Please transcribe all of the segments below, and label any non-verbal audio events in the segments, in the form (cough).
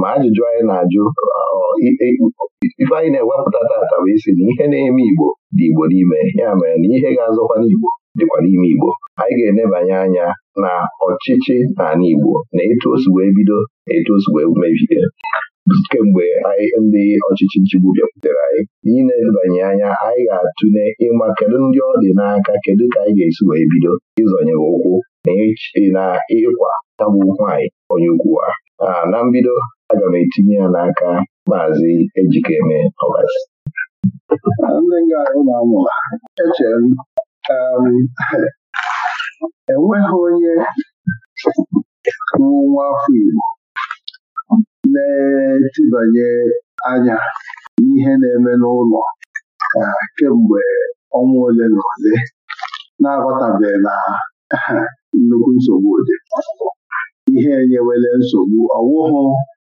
ma ajụjụ anyị na-ajụ ife anyị na-ewepụta tata bụ isi na ihe na-eme Igbo dị Igbo n'ime ya mere na ihe ga-azọkwa n'Igbo dịkwa n'ime Igbo anyị ga-enebanye anya na ọchịchị n'ala Igbo na etu o wee bido etu o wee mebie kemgbe ndị ọchịchị nchigbu bịakwutere anyị n'inebanye anya anyị ga-atụle ịma kedu ndị ọ dị n'aka kedu ka anyị ga-esi wee bido ịzọnye ụkwụ na ịkwa tabụ anyị onye ukwu a na mbido aga m etinye ya n'aka maazị Ejikeme Ọbasi ndị na echere m um, enweghị onye nwa afọ Igbo na-etibanye anya n'ihe na-eme n'ụlọ kemgbe ọnwa ole na ole na-aghọtabeghị na nnukwu nsogbu dị ihe enyewele nsogbu ọwụhụ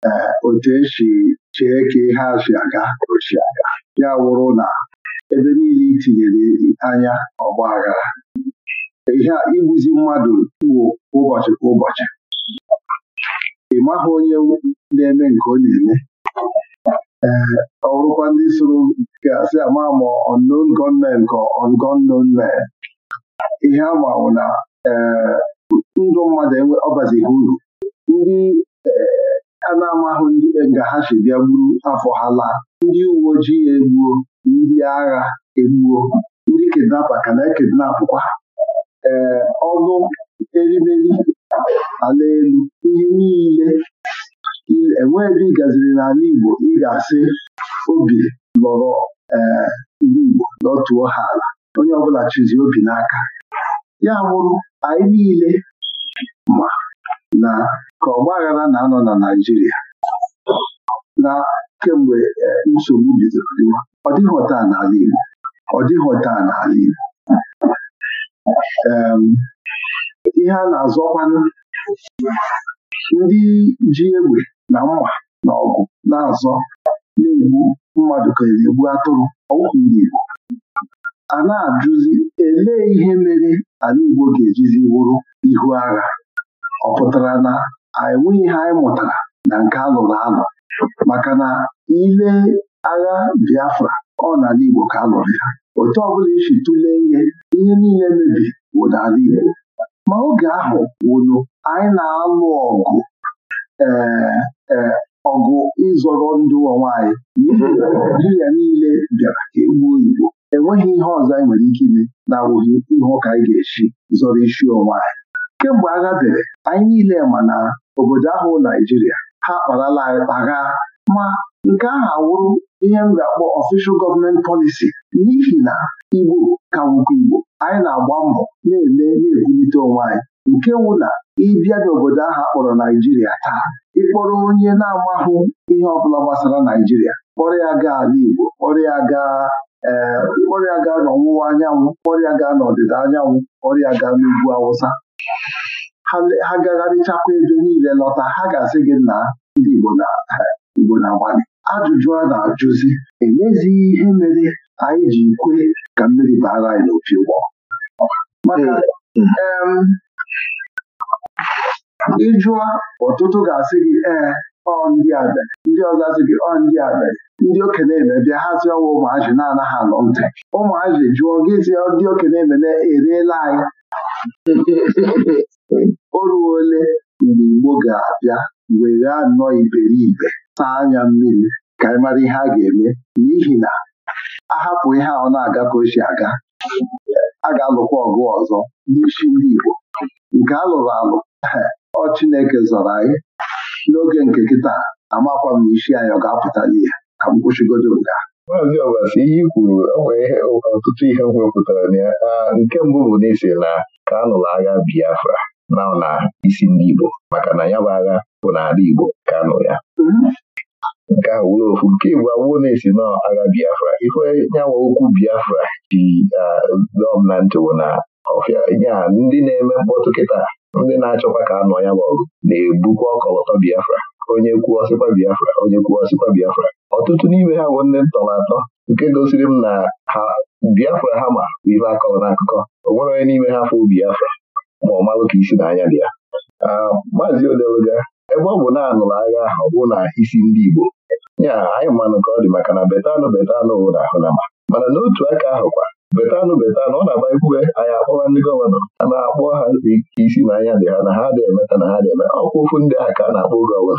e, otu esi chee ka ihe afi aga ochi aga ya wụrụ na ebe niile itinyere anya ọgba aghara ihe a igbuzi mmadụ wụ ụbọchị kwa ụbọchị ị maghị onye na-eme nke ọ na-eme ee ọ ndị soro gasị ama ma unknown gunmen ka unknown gunmen ihe ama bụ na e, ndụ mmadụ ọbazighị uru ndị eh, a na ndị eh, nga ha si bịa gburu afọ ha laa ndị uwe ojii egbuo ndị agha egbuo ndị kidnapa ka na-ekidnapụkwa ee eh, ọnụ erimeri ala elu ihe niile enweghị ebe ị gaziri n'ala Igbo ị ga-asị obi lọrọ ee ndị Igbo dọtuo ha ala onye ọbụla chizi obi n'aka ya bụrụ anyị niile ma na ka ọgba aghara na-anọ na Naijiria na kemgbe e, nsogbu bidoro dịwa ọ dịghị ọta n'ala Igbo ọ dịghị ọta n'ala Igbo ihe a na-azọkwanụ ndị ji egbe na mma na ọgụ na-azọ na-egbu mmadụ ka na-egbu atụrụ ọgwụ ndị Igbo a na-ajụzi elee ihe mere ala Igbo ga-ejizi wụrụ ihu agha ọ pụtara na enweghị ihe anyị mụtara na nke alụrụ alụ maka na ile agha Biafra ọ n'ala Igbo ka a lụrụ ya otu ọbụla isi tụlee ihe ihe niile mebiri bụ n'ala Igbo ma oge ahụ wụnụ anyị na-alụ ọgụ ee eh, eh, ọgụ ịzọrọ ndụ onwe anyị n'ihi Naịjirịa niile bịara ka egbuo Igbo enweghị ihe ọzọ anyị nwere ike ime na-awụghị ihe ụka anyị ga-esi zọrọ isi onwe anyị kemgbe agha bere anyị niile ma na obodo ahụ Naijiria ha akparala agha ma nke ahụ awụrụ ihe m ga-akpọ ọfishal gọọmenti polisi n'ihi na Igbo ka nwụkwa Igbo anyị na-agba mbọ na-eme na-ebulite onwe anyị nke wụ na ịbịa n'obodo ahụ akpọrọ Naijiria taa ịkpọrọ onye na-amahụ ihe ọ bụla gbasara Naijiria kpọrọ ya gaa ala Igbo kpọrọ ya gaa ee eh, ọrịa gaa n'ọwụwa anyanwụ ọrịa gaa n'ọdịda anyanwụ ọrịa gaa n'ugwu awụsa ha gagharịchakwa ebe niile lọta ha ga-asị gị na ndị Igbo na-agbalị (laughs) ajụjụ a na-ajụzi emezighị ihe mere anyị ji kwe ka mmiri baara anyị n'opi ụgbọ maka eh, mm. ịjụọ ọtụtụ ga-asị gị ee eh, ọ ndị abịa ndị ọzọ asị gị ọ ndị abịa ndị okenye eme bịa hazi ọwa ụmụazị na-anaghị alụ ntị ụmụazị jụọ gịzi ndị okenye eme na-erela anyị (laughs) o ruo ole mgbe Igbo ga-abịa were anọ iberibe saa anya mmiri ka anyị mara ihe a ga-eme n'ihi na ahapụ ihe ọ na-aga ka o si aga a ga-alụkwa ọgụ ọzọ n'isi ndị Igbo nke a lụrụ alụ (laughs) ọ Chineke zọrọ anyị n'oge nke kịta amakwa m isi anyị ọ ga-apụta n'ihe ka m kwụsịgodo nga maazị ọbasi ihe kwuru kwuru ihe ọtụtụ ihe m wepụtara na ya nke mbụ bụ n'isi na ka a agha Biafra na na isi ndị Igbo maka na ya bụ agha bụ n'ala Igbo ka a ya nke ahụ wụrụ ofu nke Igbo awụo na-esi na agha Biafra ife nyawa okwu Biafra ji dọm na ntị bụ na ọfịa ya ndị na-eme mkpọtụ kịta ndị na-achọkwa ka anọ ya ma ọgụ na-ebukwa ọkọlọtọ Biafra onye kwuo sịkwa Biafra onye kwuo sịkwa Biafra ọtụtụ n'ime ha bụ ndị ntọrọ atọ nke gosiri m na ha Biafra ha ma ife akọrọ n'akụkọ onwere onye n'ime ha fụ Biafra ma ọ malụ ka isi n'anya dị ya maazị Odeluga ebe ọ bụ na anụrụ agha ahụ ọ bụ na isi ndị Igbo nya anyị mmanụ ka ọ dị maka na betanụ betanụ nwụrụ ahụ na ma mana n'otu aka kwa betanụ betanụ ọ na-agba ikwuwe anyị akpọwa ndị gọvanọ a na-akpọ ha isi na anya dị ha na ha dị na ha dị eme ọkwa ofu ndị a ka a na-akpọ gọvanọ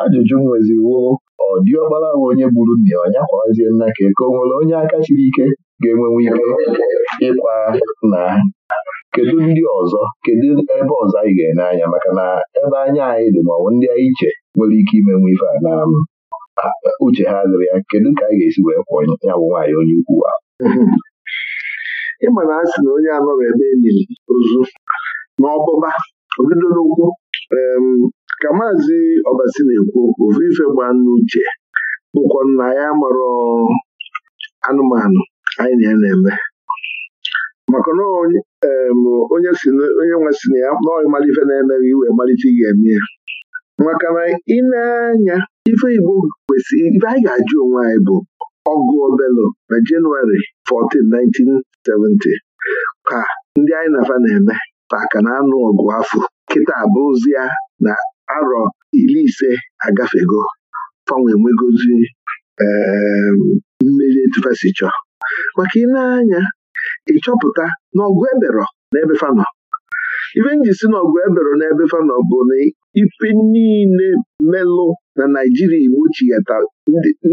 ajụjụ m nweziwo ọ dị ọgbara nwe onye gburu nna ya ọnya kwarazie nna ka eke o nwere onye aka siri ike ga enwenwe ike ịkwa na kedu ndị ọzọ kedu ebe ọzọ anyị ga ene anya maka na ebe anya anyị dị ma ndị anyị iche nwere ike imenwe ife a na um, uche ha dịrị ya kedu ka anyị ga-esi wee kwụọ ya bụ nwaanyị onye ukwu ahụ ịma na asị na onye anọrọ ebe enyi m ozu ọbụba obido n'ụkwụ ka maazị ọbasi na-ekwu okwu ofu ife gbaa n'uche bụkwa na ya marọ anụmanụ anyị na ya na-eme maka na onye nwe si na ya naọhị malife na-emeghị iwe malite ị ga-eme ya maka na ị na-anya ife Igbo kwesịrị ife anyị ga-ajụ onwe anyị bụ ọgụ obelo na Jenụwarị 14, 70 ka ndị anyị nafa na-eme taka na anụ ọgụ afọ kịta abụrụzia na arọ iri ise agafego fanwe nwegozi ehm, mmeri etufesi chọọ maka ị anya ịchọpụta na eberọ na ife nji si eberọ na ebe fanọ bụ na ife niile melụ na naijiria iwu chighata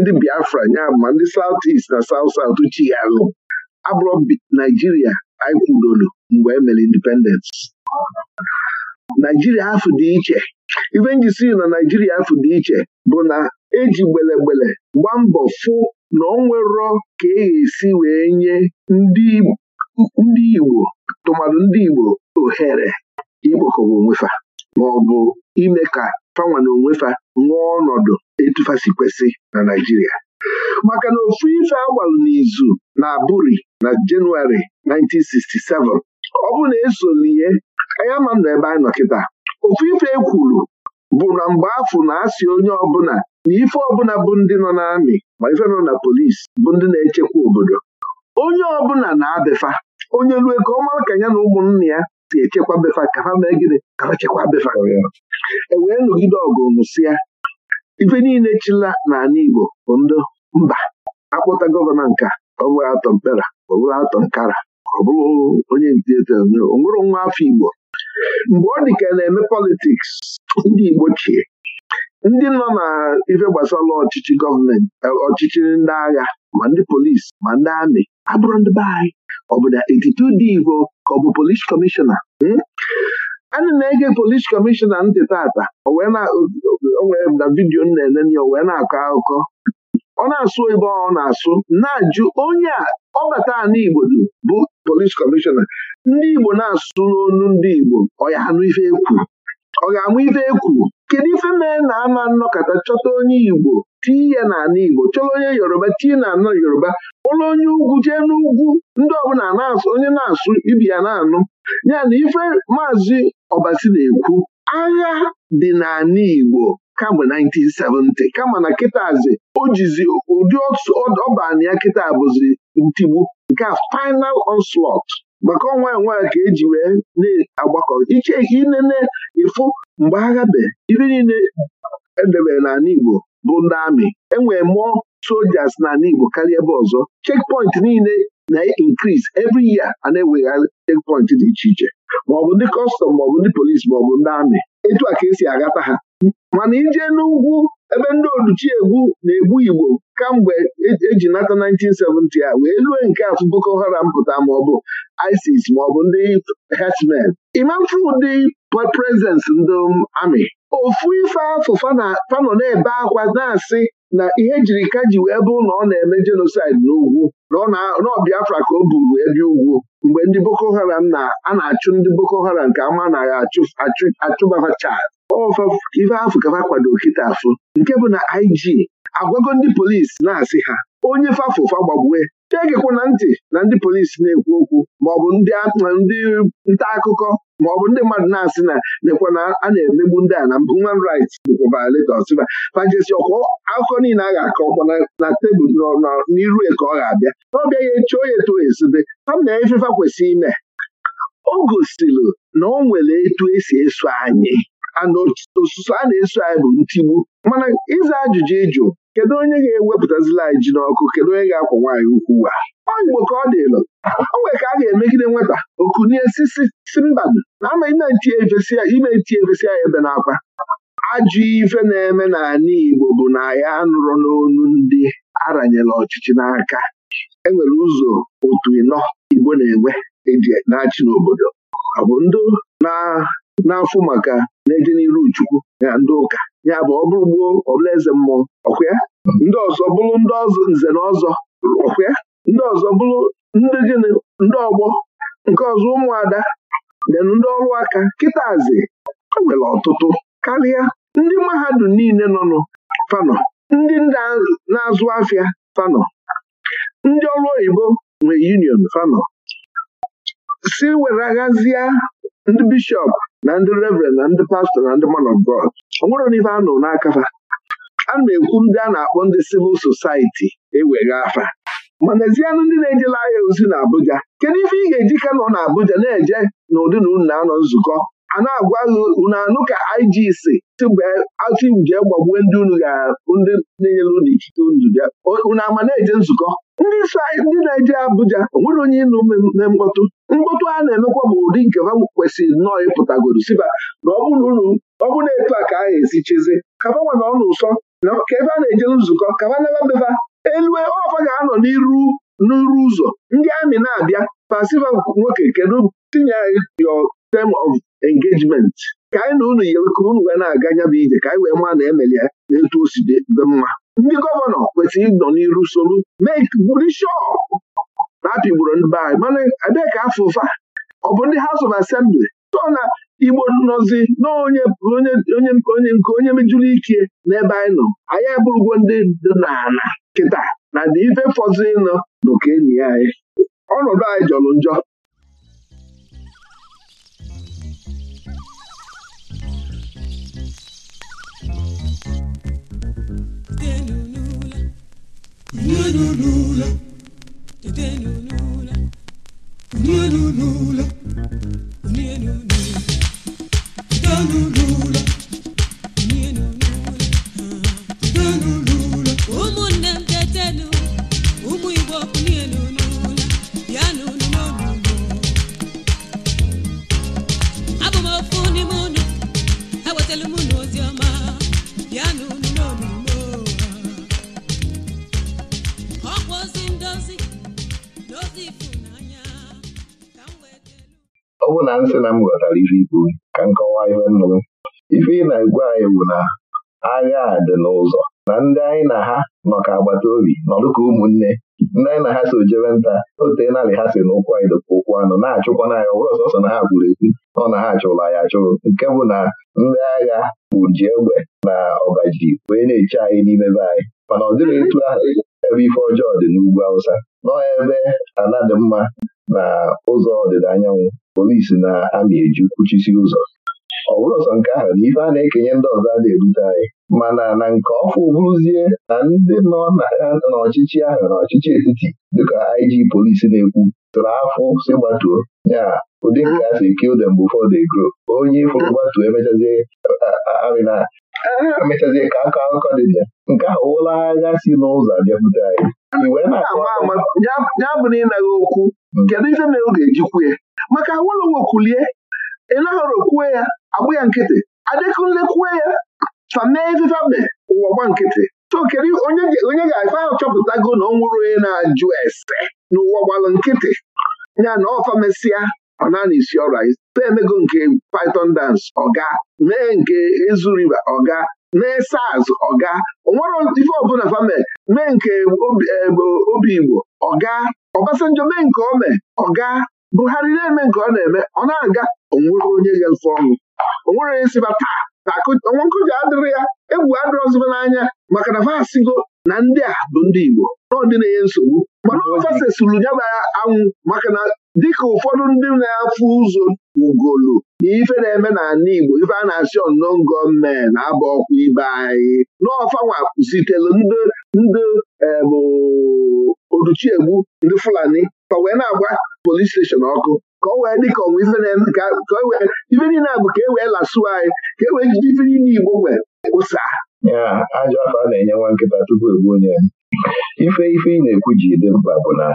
ndị biafra nya ma ndị South East na abụrọ naijiria anyị mgbe emere mere naijiria afọ dị iche ife njisi na naijiria afọ dị iche bụ na eji gbelegbele gba mbọ fụ na ọ nwerọ ka e ga-esi wee nye ndị Igbo tụmadụ ndị Igbo ohere ikpokọba onwefa ma ọ bụ ime ka fanwa na onwefa ṅụọ ọnọdụ kwesị na Naijiria maka na ofu ife agbalụ n'izu na abụri na Jenụwarị 1967 ọ bụ na esoliye anyị ama na ebe anyị nọ kịta ofu ife e kwuru bụ na mgbe afụ na asị onye ọbụla na ife ọbụla bụ ndị nọ n'amị ma ife nọ na polisi bụ ndị na-echekwa obodo onye ọbụla na-abịafa onye rue ka ọma ka ya na ụmụnna ya si echekwa befa ka ha mee gịnị ka ha chekwa befa e wee nọgide ọgụ ife niile chila n'ala Igbo bụ ndị mba akpọta gọvanọ nka ọ bụrụ atọ mkpera ọ atọ nkara ọ bụrụ onye ntete o nwere nwa afọ Igbo mgbe ọ dị ka na-eme politiks ndị Igbo chie ndị nọ na ife gbasara ọchịchị gọọmenti ọchịchị ndị agha ma ndị polisi ma ndị amị abụrụ ndị be anyị ọ bụ na etiti dị Igbo ka ọ bụ polis kọmishọna anyị na-ege polis kọmishọna ntị tata o na vidiyo m na enene ya o wee na-akọ akụkọ ọ na-asụ ebe ọ na-asụ na-ajụ onye a ọbata ala Igbo bụ polis kọmishọna ndị Igbo na-asụ n'onu ndị Igbo ọ ya anụ ife ekwu ọ ga-amụ ife ekwu kedu ife mee na ama nnọkọta chọta onye Igbo tii ya n'ala Igbo chọrọ onye Yoruba tii na anọ Yoruba ụlọ onye ugwu jee n'ugwu ndị ọbụla onye na-asụ ibi ya na-anụ ya na ife maazị Ọbasi na-ekwu agha dị n'ala Igbo kamgbe 1970 kama na kịtazi o jizi ụdị ọbana ya kịta bụzi ntigbu nke a final onslaught maka ọnwa enwe ka eji wee na-agbakọ iche inene ịfụ mgbe agha be ibe niile edebere ala Igbo bụ ndị amị enwere mụọ sojas n'ala Igbo karịa ebe ọzọ chekpọint niile na-increase every year a na-ewegharị chekpọint dị iche iche maọbụ ndị kọstọm maọbụ ndị polisi maọbụ ndị amị etu a ka esi aghata ha mana ije n'ugwu ebe ndị oduchi egwu na-egbu Igbo kamgbe eji nata 1970 a wee lue nke atụ Boko Haram pụta maọbụ ISIS maọbụ ndị herdsmen imafu ụdị prezens ndị amị ofu ife afọ fanọ na-ebe akwa na-asị na ihe jiri ka ji wee bụ na ọ na-eme jenosaid n'ugwu nọ Biafra ka o buru ebi ugwu mgbe ndị Boko Haram na a na-achụ ndị Boko Haram ka ama naghị achụbaa chad ife afụ ka ha kwado kịta afụ nke bụ na IG agwago ndị polisi na-asị ha onye fafụfa gbagbue na ntị na ndị polisi na-ekwu okwu maọbụ ndị nta akụkọ maọbụ ndị mmadụ na-asị na nekwa na a na-emegbu ndị a na human rights bụkwa violators pajesi ọkụ akụkọ niile a ga-akọkwa akọ na tebụl n'iru e ka ọ ga-abịa n'ọbịa ya echi onye eto esobe ha na ifefa kwesịrị ime o gosiri na o nwere etu esi eso anyị ana a na-eso anyị bụ ntigbu mana ịza ajụjụ ịjụ kedu onye ga-ewepụtazila anyị ji n'ọkụ kedu onye ga-akwa nwaanyị ukwu a ọ Igbo ka ọ elu, o nwere ka a ga-emegide nwata okunie sisi mba na amaghị na ime ntie efesi ya ebe n'akwa ajụ ife na-eme n'ala Igbo bụ na ya anụrụ n'onu ndị aranyela ọchịchị n'aka enwere ụzọ otu ịnọ Igbo na-enwe eji na-achị n'obodo ọ bụ ndụ na n'afọ maka na-edeniru chukwu na ndị ụka ya bụ ọ bụrụ gboo ọbụla eze mmụọ ọkwịa ndị ọzọ bụrụ ndị ọzọ nze na ọzọ ọkwịa ndị ọzọ bụrụ ndị gịnị ndị ọgbọ nke ọzọ ụmụada denụ ndị ọrụ aka kịtazi e nwere ọtụtụ karịa ndị mahadum niile nọnụ fanọ ndị na-azụ afịa fanọ ndị ọrụ oyibo nwe union fanọ si e were aghazie ndị bishọp na ndị reverend na ndị pastọ na ndị man of God ọ nwere n'ife a nụ n'aka fa a na-ekwu ndị a na-akpọ ndị civil society ewega afa mana ezianụ ndị na-ejela ahịa ozi na Abuja kedu ife ị ga-eji Kano nọ na Abuja na-eje na ụdị na unu na-anọ nzukọ a na-agwa unu anụ ka IGC atụ jee gbagbue ndị unu ga ndị na-enyere unu ikike unu bịa unu ama na-eje nzukọ ndị na-eje Abuja onwere onye ịnụ me mkpọtụ mkpọtụ a na-emekwa bụ ụdị nke ha kwesịrị nnọọ ịpụtagoro siba na ọ bụrụ na etu a ka a ga-esi cheze kaba nwa na ọ na ụsọ ka ebe a na-eje nzukọ kaba naba beba elue ọfa ga-anọ n'iru n'iru ụzọ ndị amị na-abịa pasiva nwoke kedu tinye your tem of engagement ka anyị na unu yere ka unu ga na-aga nya bụ ije ka anyị wee maa na emelie na eto o dị mma ndị gọvanọ kwesịrị ịnọ n'iru solu bụrụ shọp na apịgburu ndị be anyị mana ebee ka afọ ụfa ọ bụ ndị haus of Assembly so na Igbo nọzi na onye onye nke onye mejuru ike n'ebe anyị nọ anyị abụrụgo ndị dị n'ala kịta na ndị ife fọzụ ịnọ n'okenyi anyị ọnọdụ anyị jọrọ njọ Lula. ọ bụ na nsị na m ghọtara ife ikwu ka m kọwaa ihe nnụnụ. ife ị na-egwu anyị bụ na agha a dị n'ụzọ na ndị anyị na ha nọ ka agbata obi nọdụ ụmụnne ndị anyị na ha so jebe nta ote narị ha si na ụkwụ anyị ka ụkwụ anọ na-achụkwa na ya ọbụrụ sọsọ na ha gwuru egwu nọ na ha achụrụ anyị achụrụ nke bụ na ndị agha bụ ji egbe na ọbaji wee na-eche anyị n'ime be anyị mana ọ dịghị etu ahụ ebe ife ọjọọ dị n'ugwu Awụsa nọ ebe ala dị mma na ụzọ ọdịda anyanwụ polisi na amị eji kwuchisi ụzọ ọ bụrụ ọsọ nke ahụ na ife a na-ekenye ndị ọzọ a na ebute anyị mana na nke ọfụ bụrụzie na ndị nọ n'ọchịchị ahụ na ọchịchị etiti dịka IG polisi na-ekwu tụrụ afọ si gbatuo ya ụdị nke a si kill them before they grow onye fụrụ gbatuo emechazie ka akọ akụkọ dị ya nke ahụ ụlọ agha si n'ụzọ abịapụta anyị ya bụ na ịnaghị okwu kedu ife mere ọ ga-ejikwu ya maka Awolowo kulie Ịlahoro kwue ya agbụ ya nkịtị Adekunle kwue ya famee ifefe ụwa gba nkịtị so onye ga-afe ahụ chọpụtago na ọ nwụrụ onye na-ajụ ese n'ụwa gbalụ nkịtị ya na ọfamesịa ọ naanị isi ọrụ anyị emego nke Python dance ọga mee nke Ezu River ọga mee SARS ọga onwere ife ọbụla fame mee nke obi e, Igbo ọga Ọbasanjọ mee nke ome ọga ọ gaa Buhari na-eme nke ọ na-eme ọ na-aga onwere onye ga-efe ọnụ onwere onye siba taa na nkụja adịrị ya egwu adịrọziba n'anya maka na vasigo na ndị a bụ ndị Igbo n'ọdịnaya nsogbu mana ọfasesuru nyaba anwụ maka na dịka ụfọdụ ndị na-afụ ụzọ ugolu na ife na-eme n'ala Igbo ife a na-asị ọnọọ gọọmenti na-aba ọkwa ibe anyị n'ọfanwa kwụsitelu ndị ndị eh, uduchiegbu ndị Fulani ka wee na-agba polis steshọn ọkụ ka ọ wee dị ka ọnwa ife niile a bụ ka e wee lasuo anyị ka e wee jide ife niile Igbo nwee ụsa ajọ afọ a na-enye nwa nkịta tupu egbuo onye ife ife ị na-ekwu ji dị mkpa bụ na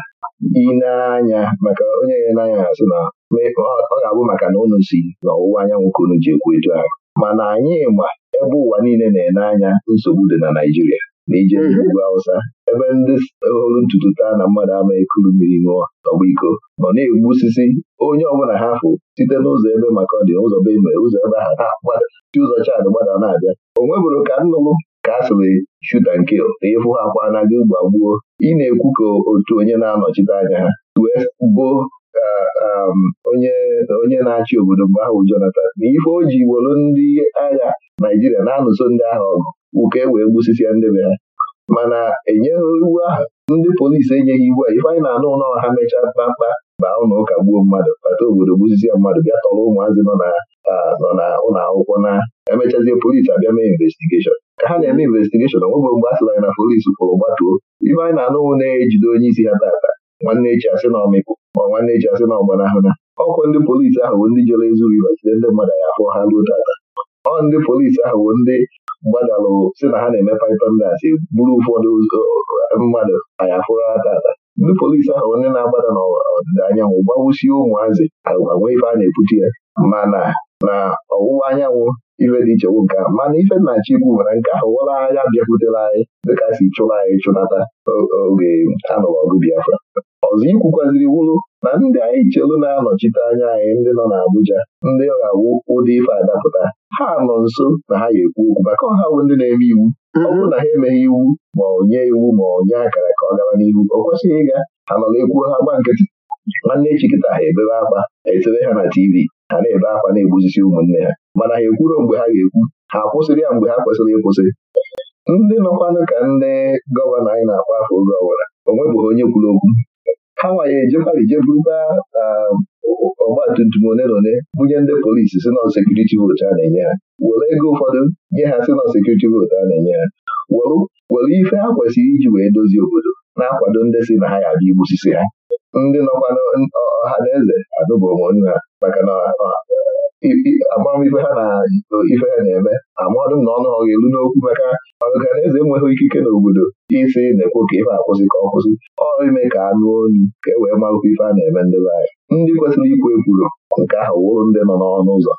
ị na-anya maka onye ya n'anya na-asị na ọ ga-abụ maka na unu si n'ọwụwa anyanwụ ka unu ji ekwu etu ahụ mana anyị ma ebe ụwa niile na-ene anya nsogbu dị na Naịjirịa na ije ugwu Hausa ebe ndị hụrụ ntutu taa na mmadụ ama ekuru mmiri ṅụọ n'ọgba iko nọ na-egbu osisi onye ọbụla ha fụ site n'ụzọ ebe maka ọ ụzọ be ụzọ ebe ha na-agbada ụzọ chadị gbada na-abịa o nwebụrụ ka nnụnụ ka a sịrị shuta nke na ịfụ ha kwa na gị gbagbuo ị na-ekwu ka otu onye na-anọchite anya ha wee gboo um, onye na-achị obodo mgbe ahụ Jonathan na ife o ji wolu ndị agha Naijiria na-anụso ndị agha ọgụ wuke e wee gbusisia be ha mana enyeghị iwu ahụ ndị polisi enyeghị iwu a ife anyị na-anụ ụlọ ha mechaa kpakpa, baa ụlọ ụka gbuo mmadụ bata obodo gbuzizie mmadụ bịa tọrọ ụmụazị nọ na ụlọ akwụkwọ na emechazie polisi abịa mee investigeshọn ka ha na-eme investigeshọn onwegbe mgbe a sịla na polisi kwụrụ gbatuo ife anyị na anụwụ na-ejide onye isi ha tata nwanne echi asị na ọmịpụ ma nwanne echi asị na ọgbanahụna ọkwa ndị polisi ahụ bụ ndị jere ezuru iba ndị mmadụ ya afọ ha ruo tata ọ ndị polisi ahụ bụ ndị gbadalụ si na ha na-eme paitọndasi bụrụ ụfọdụ eh, mmadụ anya fụrụ atata ndị polisi ahụ onye na-agbada n'ọdịda anyanwụ gbawusie ụmụazị agwa ife a na-ebuchi ya mana na ọwụwa anyanwụ ife dị iche nwoke ahụ mana ife nna chikwu nwere nke ahụ wara agha bịakwutere anyị dịka si chụrụ anyị chụnata oge anụrụ ọgụ Biafra ọzọ ikwukwaziri wụrụ na ndị anyị chelu na-anọchite anya anyị ndị nọ n'Abuja ndị ga-awụ ụdị ife adapụta ha nọ nso na ha ga-ekwu okwu maka ọha bụ ndị na-eme iwu ọ bụrụ na ha emeghị iwu ma ọ nye iwu ma ọ nye akara ka ọ gara n'ihu ọ kwesịghị ịga ha nọ na-ekwu ha gba nkịtị nwanne echi ha ebebe akpa etebe ha na TV ha na-ebe akwa na-egbuzisi ụmụnne ha mana ha ekwuro mgbe ha ga-ekwu ha akwụsịrị ya mgbe ha kwesịrị ịkwụsị ndị nọkwanụ ka ndị gọvanọ anyị na akpa afọ oge ọbụla o nwebeghị onye kwuru okwu ha ije ejekwa ijebuba um, ọgbatumtum one na ole bunye ndị polisi si nọ sekuriti a na-enye ha were ego ụfọdụ nye ha si nọ sekuriti votu a na-enye ha were ife ha kwesịrị iji wee dozie obodo na-akwado ndị si na ha ya abịa igbusisi ha ndị nọkwa ọha na eze adụba onwe ha maka na amamihe ha na ife ha na-eme amadụ m na ọnụ ha elu n'okwu maka ọganeze enweghị ikike n'obodo isi na-ekwo ka ife akwụsị ka ọ kwụsị ọrụ ime ka anụ onu ka e wee marakwa ife a na-eme ndị be anyị ndị kwesịrị ikwu ekwuru nke ahụ wụrụ ndị nọ n'ọnụ ụzọ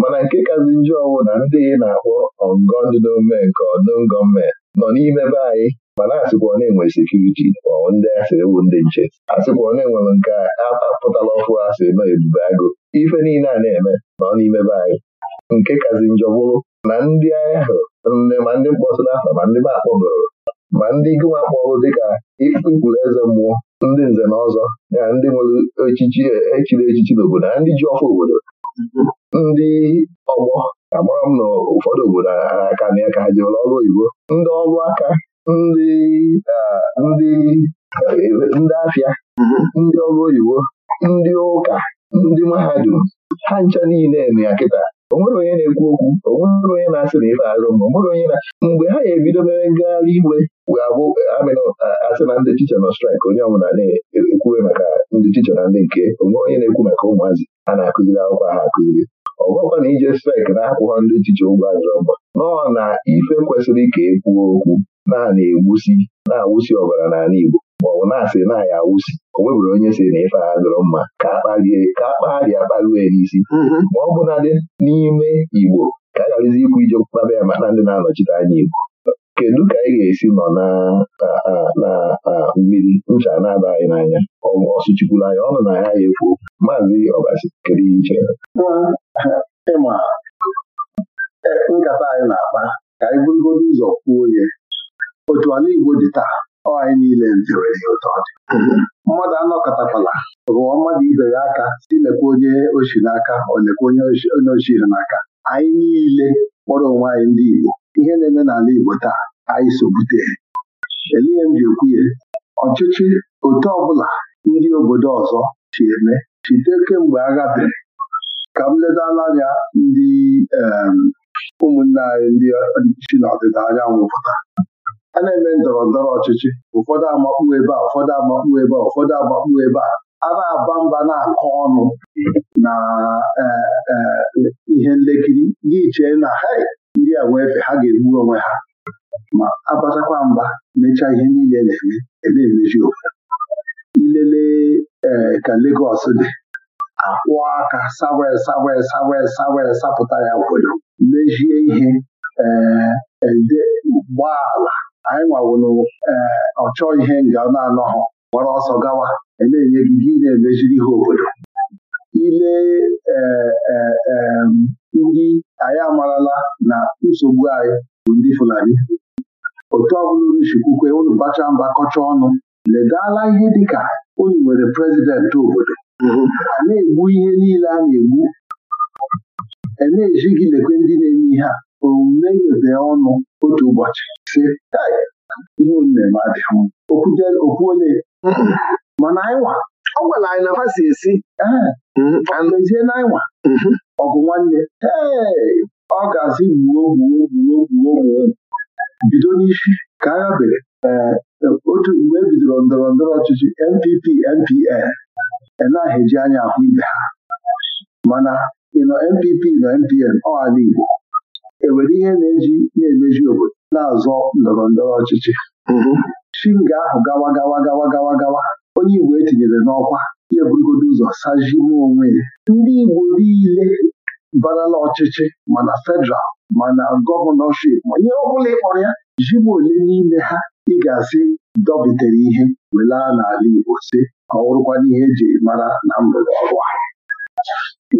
mana nke kazi njọ ọwụ na ndị na-akpọ Ongo ndị n'ome nke ọdụm gọọmenti nọ n'ime be anyị mana asịkwa ọ na-enwe sekuriti ma ndị asịrị ewu ndị nche asịkwa ọ na-enwere nke a apụtala ọfụ asị nọ ebube agụ ife niile a na-eme nọ n'ime be anyị nke kazi njọ bụrụ na ndị ahụ nne ma ndị mkpọtụrụ afa ma ndị be ma ndị gụwa akpọrụ dịka ikpuru eze mmụọ ndị nze na ọzọ ya ndị nwere echichi e, echiri echichi n'obodo na ndị ji ọfụ obodo ndị ọgbọ agbara m na ụfọdụ obodo aka na ya ka ha ọrụ oyibo ndị ọrụ aka ndị e, ndị afịa ndị ọrụ oyibo ndị ụka ndị mahadum ha ncha niile na ya kịta o nwere onye na-ekwu okwu onwere onye na-asị na ife arụ ma onye na mgbe ha ga-ebido mere ngagharị iwe wee abụ asị na ndị ticha nọ straik onye ọbụla na-ekwuwe maka ndị ticha na ndị nke onwe onye na-ekwu maka ụmụazị a na-akụziri akwụkwọ ha akụziri ọ na ije straik na-akwụghọ ndị ticha ụgwọ azụrọ mgba nọ na ife kwesịrị ka ekwuo okwu na na na-awụsi ọbara n'ala Igbo maọbụ na-asị na ya awụsi o nwebụrụ onye si na ife agha dọrọ mma ka akpalie ka akpagharịa ya n'isi mm-hmm. ma ọ bụladị n'ime Igbo ka a gharazi ikwu ije kpaba ya maka ndị na-anọchite anya Igbo kedu ka anyị ga-esi nọ na a mmiri ncha na-aba anyị n'anya ọsụchikwuru anya ọnụ na ya ya efuo maazị ọbasi kedu ihe iche ịma e, nkata anyị na-akpa ka anyị bụrụgodo ụzọ kwuo ya otu ala Igbo dị taa anyị niile nterere ya ụtọ mmadụ anọkọtakwala rụọ mmadụ ibe ya aka si lekwa onye ochie n'aka olekwa onye ochie n'aka anyị niile kpọrọ onwe anyị ndị Igbo ihe na-eme n'ala Igbo taa anyị so bute elie m ji ekwuye ọchịchị otu ọbụla ndị obodo ọzọ chi eme chite kemgbe agha bere ka m ledala anya ndị ụmụnne anyị ndị na n'ọdịda anyanwụ pụta a na-eme ndọrọ ndọrọ ọchịchị ụfọdụ amakpu ebe a ụfọdụ amakpu ebe a ụfọdụ amakpu ebe a a na-aba mba na-akọ ọnụ na e, e, ihe nlekiri gị chee na ha ndị a nwee efe ha ga-egbu onwe ha ma abatakwa mba mechaa ihe niile na-eme eme emeji ofu ilele e, ka Legọs dị akwụ aka sawe sawe sawe sawe sapụta ya obodo mejie ihe ee gbaa ala anyị nwawụrụ eh, ọchọ ihe nga na-anọghọ gbara ọsọ gawa na-enye gị gị na emejiri ihe obodo ile eh, eh, ndị anyị amarala na nsogbu anyị bụ ndị Fulani otu ọbụla unu chikwukwe unu bacha mba kọcha ọnụ ledala ihe dịka unu nwere prezidentị obodo a na-egbu ihe niile a na-egbu e na-eji gị lekwe ndị na-eme ihe a omume idobe ọnụ otu ụbọchị si ihe eme adịghị okwu ole mm-hmm. mana anyịnwa ọ gwara anyị na ha si esi mm-hmm. ezie na anyịnwa mm-hmm. ọgụ nwanne ee ọ ga-asị gbuo gbuo gbuo gbuo gbuo bido n'isi ka agha bere eh, otu mgbe e bidoro ndọrọ ndọrọ ọchịchị NPP NPN enaghị eji anya ahụ ibe ha mana ịnọ NPP nọ NPN ọ ala Igbo enwere ihe na-eji na-emeji obodo na-azọ ndọrọ ndọrọ ọchịchị shinga mhm. ahụ gawa gawa gawa gawa gawa onye Igbo etinyere n'ọkwa ya eburugodo ụzọ sajime onwe ya ndị Igbo niile barala ọchịchị mana fedral mana gọvanọship ma ihe ọ bụla ịkpọrọ ya ji ole n'ime ha ị ga-asị dọbitere ihe were n'ala Igbo si ka ọ bụrụkwa n'ihe eji mara na mgbede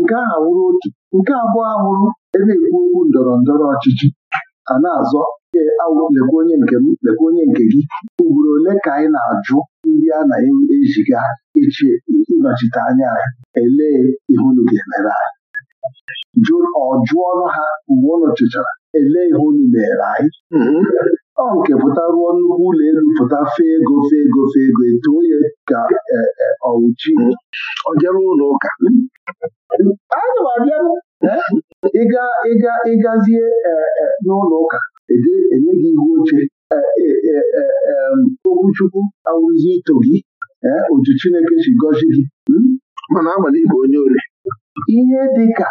nke a awụrụ otu nke abụọ ahụrụ ebe ekwu okwu ndọrọ ndọrọ ọchịchị a na-azọ lekwa onye nke m lekwa onye nke gị ugboro ole ka anyị na-ajụ ndị a na-ejiga echi ịnọchite anya anyị elee ihe unu ga-emere anyị ọ ha mgbe ọ chụchara elee ihe unu na anyị mm-hmm. ọ nke pụta nnukwu ụlọ elu pụta fee ego fee ego fee ego etu onye ka e, e, ọwụchi ọjara ụlọ ụka ịgazie e, n'ụlọ ụka enye gị ihu oche okwuchukwu awụzi ito gị otu Chineke si gọzi gị mana amala ịbụ onye ori ihe dị ka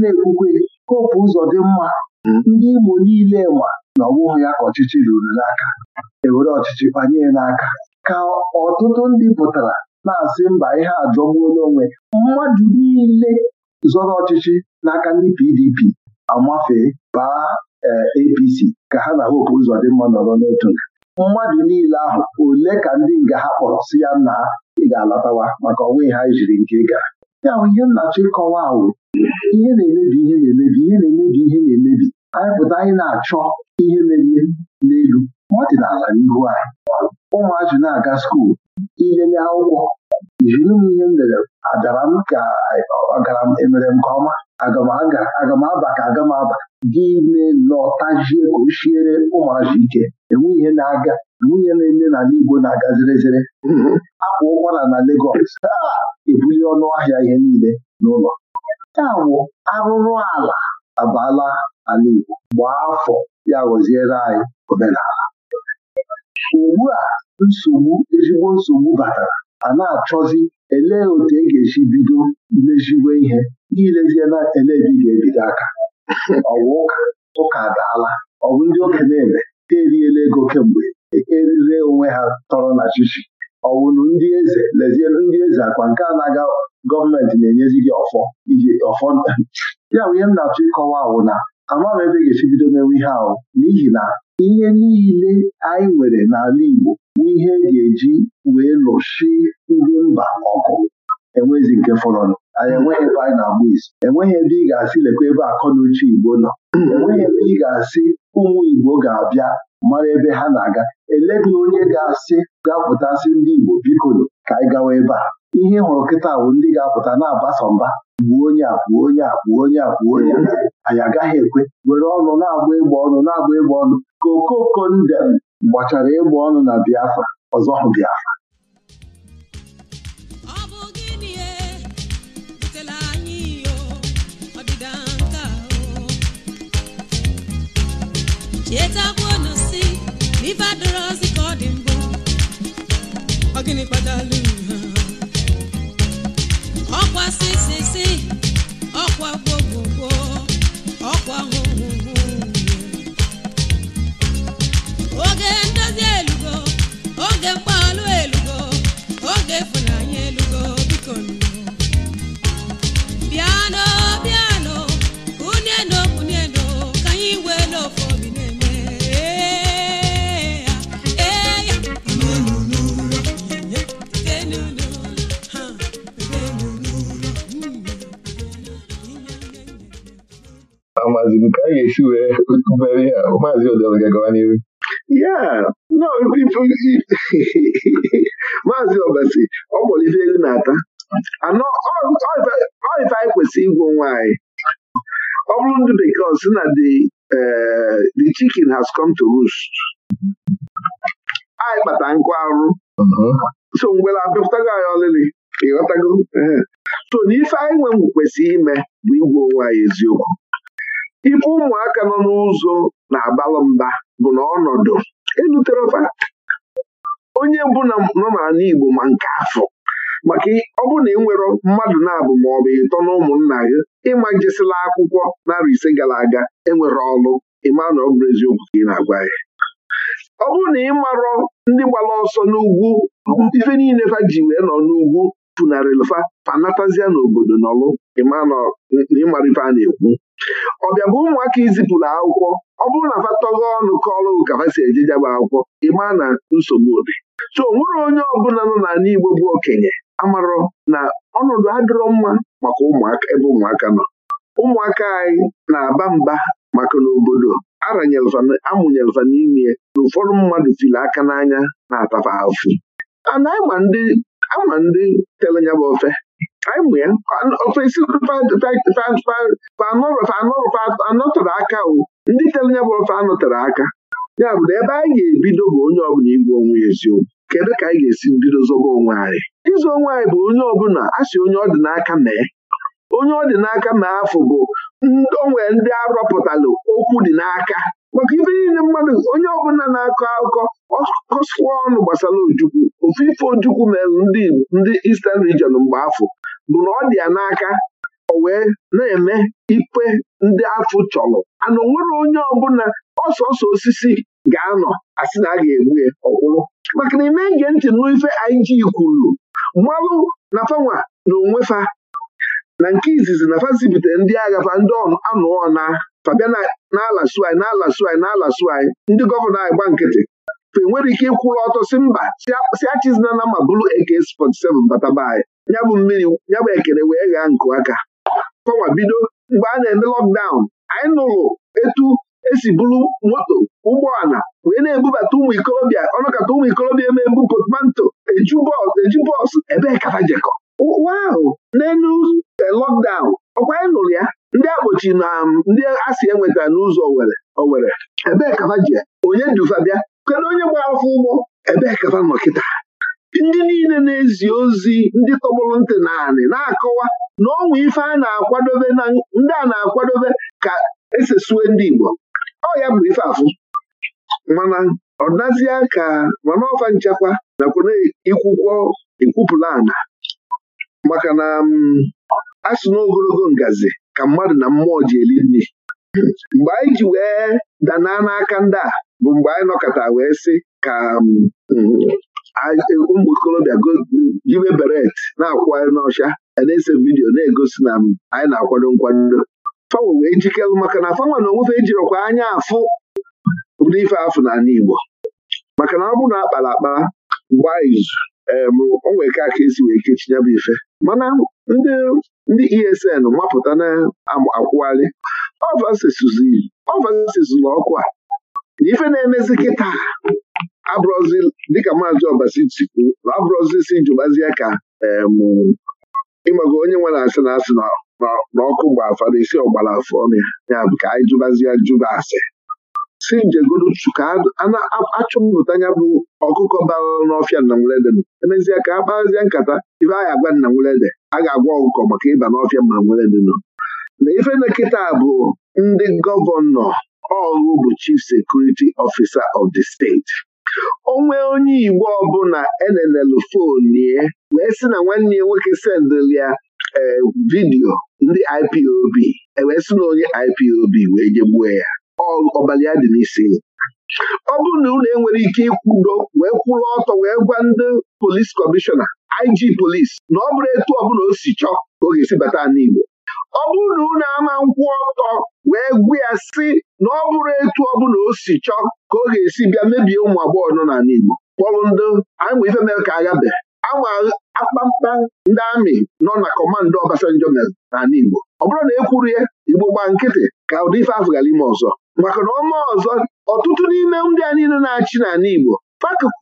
na-ekwukwe popu ụzọ dị mma ndị Imo niile ma na ọ bụghị ya ka ọchịchị ruru n'aka ewere ọchịchị kpanye n'aka ka ọtụtụ ndị pụtara na-asị mba ihe ajọgbuola onwe mmadụ niile zọrọ ọchịchị n'aka ndị PDP amafee baa eh, APC ka ha na dị mma nọrọ n'otu nke. mmadụ niile ahụ ole ka ndị nga ha kpọrọ si ya na ị ga-alọtawa maka onwe ha jiri nke ị gara ya bụ ihe nnachi kọwa ahụ ihe na-emebi ihe na-emebi ihe na-emebi ihe na-emebi anyị pụta anyị na-achọ ihe mere ihe n'elu ọdịnala n'ihu anyị Ụmụazụ na-aga skuul ilele akwụkwọ jiri m ihe m lere adara m ka ọgara m emere m nke ọma aga m ka aga m gị ime lọtajie ka o shiere ike enwe ihe na-aga enwe ihe na-eme n'ala Igbo na-aga zerezere akwa ụkwara na Legọs ebuli ọnụ ahịa ihe niile n'ụlọ ya bụ arụrụ ala abala. ala Igbo gbaa afọ ya ghọziere anyị omenala ugbu a nsogbu ezigbo nsogbu batara a na-achọzi elee otu e ga-esi bido meziwe ihe n'ilezie na elebi ga-ebido aka ọwa ụka ụka adaala ọ bụ ndị okenye eme ha eriela ego kemgbe erire onwe ha tọrọ na chichi ọwụnụ ndị eze lezie ndị eze akwa nke a na-aga gọọmenti na-enyezi gị ọfọ iji ọfọ ya bụ ihe m na-achọ ịkọwa awụ na ama m ebe ga-esi bido mewe ihe ahụ n'ihi na ihe niile anyị nwere n'ala Igbo bụ ihe ga-eji wee lụshi ndị mba ọkụ. enwezi nke fọrọnụ anyị enweghị ebe anyị na-agba isi enweghị ebe ị ga-asị lekwa ebe akọ na uche Igbo nọ enweghị ebe ị ga-asị ụmụ Igbo ga-abịa mara ebe ha na-aga eleghị onye ga-asị ga-apụtasị ndị Igbo biko ka anyị gawa ebe a ihe hụrụ kịta bụ ndị ga-apụta na-agbasa mba gbuo onye a onye a onye a onye anyị agaghị ekwe were ọnụ na-agba ịgba ọnụ na-agba ịgba ọnụ ka okoko ndem gbachara ịgba ọnụ na Biafra ọzọ hụ Biafra e? ka ọ dị mbụ ọ gịnị ọkwa sisisi ọkwa gbogbogbo ọkwa hụhụhụ oge ndozi elugo oge mgbalụ elugo oge ịfụnanya elugo biko bịa n'obi amazighi ka a ga-esi wee mere ya maazị odelga gawa n'ihu ya maazị ọbasi ọ kpọrọ ife elu na-ata anọ ọife anyị kwesịrị ịgwọ nwa anyị ọ bụrụ ndị bekee sị na eh, the chicken has come to roost anyị kpata nkụ arụ so mgbe na apịpụtago anyị ọlịlị ịghọtago eh. so n'ife anyị nwe kwesịrị ime bụ igwu onwe anyị eziokwu ibe ụmụaka nọ n'ụzọ na-abalụ mba bụ na ọnọdụ fa. onye na nọ n'ala Igbo ma nke afọ maka ọ bụ na ị nwere mmadụ na-abụ ma ọ bụ ịtọ na ụmụnna gị ịma njesila akwụkwọ narị ise gara aga enwere ọlụ ịma na ọ bụrụ eziokwu ka ị na-agwa ya ọ bụrụ na ị marọ ndị gbara ọsọ n'ugwu ife niile fa ji wee nọ n'ugwu funarịlfa fanatazia n'obodo n'ọlụ ịmara ife a na-ekwu ọ bịa bụ ụmụaka izipụrụ akwụkwọ ọ bụrụ na fa ọnụ kọọlụ ka si eje jaba akwụkwọ ịma na nsogbu dị so onwere onye ọbụla nọ n'ala Igbo bụ okenye amarọ na ọnọdụ adịrọ mma maka ụmụaka ebe ụmụaka nọ ụmụaka anyị na-aba mba maka n'obodo amụnyelva n'ime na ụfọdụ mmadụ fili aka n'anya na-atafa afụ ana ama ndị telenya bụ ofe anyị mụ ya ofesi anọtọrọ aka o ndị tere ya bụ ofe anọtọrọ aka ya bụ na ebe anyị ga-ebido bụ onye ọbụla igwe onwe eziokwu kedu ka anyị ga-esi bido zobo onwe anyị ịzụ onwe anyị bụ onye ọbụla a onye ọ dị n'aka mee onye ọ dị n'aka mee afọ bụ onwe ndị arọpụtalụ okwu dị n'aka maka ife niile mmadụ onye ọbụla na-akọ akụkọ ọkọsụwa ọnụ gbasara ojukwu ofu ife ojukwu mere ndị isten rijion mgbe afọ bụ na ọ dị ya n'aka o wee na-eme ikpe ndị afụ chọrọ ana onwere onye ọbụla ọsọsọ osisi ga-anọ asị na a ga-egbu ya ọkwụrụ maka na ime nge ntị n'ife anyị kwuru mmalụ na fanwa na onwefa na nke izizi na fa ndị agha fa ndị anụọ na fabia na-ala suanyị na-ala suanyị na-ala ndị gọvanọ anyị gba nkịtị fe nwere ike ịkwụrụ ọtọ si mba si achizina na ma bụrụ AK47 bataba anyị ya bụ mmiri ya bụ ekele wee ghaa nkụ aka kọwa bido mgbe a na-eme lọkdaụn anyị nụrụ etu esi bụrụ moto ụgbọala wee na-ebubata ụmụ ikorobịa ọnụkata ụmụ ikorobịa eme ebu potmanto eju bọọsụ ebee kafajekọ ụwa ahụ n'elu eh, lọkdaụn ọkwa anyị nụrụ ya ndị akpọchi na um, ndị asị enwetara n'ụzọ Owere Owere ebe e kafa ji onye dufa bịa kedu onye gbara afọ ụgbọ ebe e kafa nọ kịta ndị niile na-ezi ozi ndị tọgbọrọ ntị naanị na-akọwa na ọnwa ife a na-akwadobe na ndị a na-akwadobe ka esesue ndị Igbo ọ ya bụ ife afụ mana ọ nazie ka mana ọfa nchekwa nakwana ikwụkwọ ikwupụla ana maka na um, asụ n'ogologo ngazi ka mmadụ na mmụọ ji eri nri mgbe anyị ji wee danaa n'aka ndị a bụ mgbe anyị nọkọta wee sị ka um, E, ụmụ okorobịa jibe beret na-akwagharị n'ọcha na-ese vidiyo na-egosi na anyị na-akwado nkwado Fawa wee jikelụ maka na fanwe na onwefe ejirọkwa anya afụ ụdị ife afụ na Igbo maka na ọ bụrụ na akpara akpa gbaa izu onwe ka aka esi wee kechi ya bụ ife mana ndị ESN mapụta na-akwụgharị ọvasizụla ọkụ a ife na-emezi kịta dịka maazị Ọbasi tikwu na ọ bụrụzisi jụbazie ka ịmago onye nwe na asị na asị na ọkụ gba afa na isi ọgbara afọ ọmịa ya bụ ka anyị jụbazie jụba asị si njegodu ka achụpụta ya bụ ọkụkọ bara n'ọfịa nna nwelede emezie ka a nkata ife anyị agwa nna nwelede a ga-agwa ọkụkọ maka ịba n'ọfịa ma nwelede nọ na ife na bụ ndị gọvanọ ọrụ bụ chief sekuriti ofisa of the steeti. onwe onye Igbo ọbụla e na nnlf ya wee sị na nwanne ya nwoke sendịrị ya vidio eh, vidiyo ndị IPOB e wee sị na onye IPOB wee jegbue ya ọbala ya dị n'isi ọ bụrụ na unu enwere ike ikwudo wee kwụrụ ọtọ wee gwa ndị polis kọmishọna IG polis na ọ bụrụ etu ọbụla o si chọọ ka ọ ga-esi bata n'Igbo ọ bụrụ na ama nkwụ ọtọ wee gwu ya si na ọ bụrụ etu ọ na o si chọọ ka ọ ga-esi bịa mebie ụmụ agbọghọ nọ n'ala Igbo kpọrụ ndị anyịma ife mere ka agabe ama akpamkpa ndị amị nọ na kọmanda Obasanjo mere n'ala Igbo ọ bụrụ na e ya Igbo gba nkịtị ka ụdị ife afọ ime ọzọ maka na ọma ọzọ ọtụtụ n'ime ndị a niile na-achị n'ala Igbo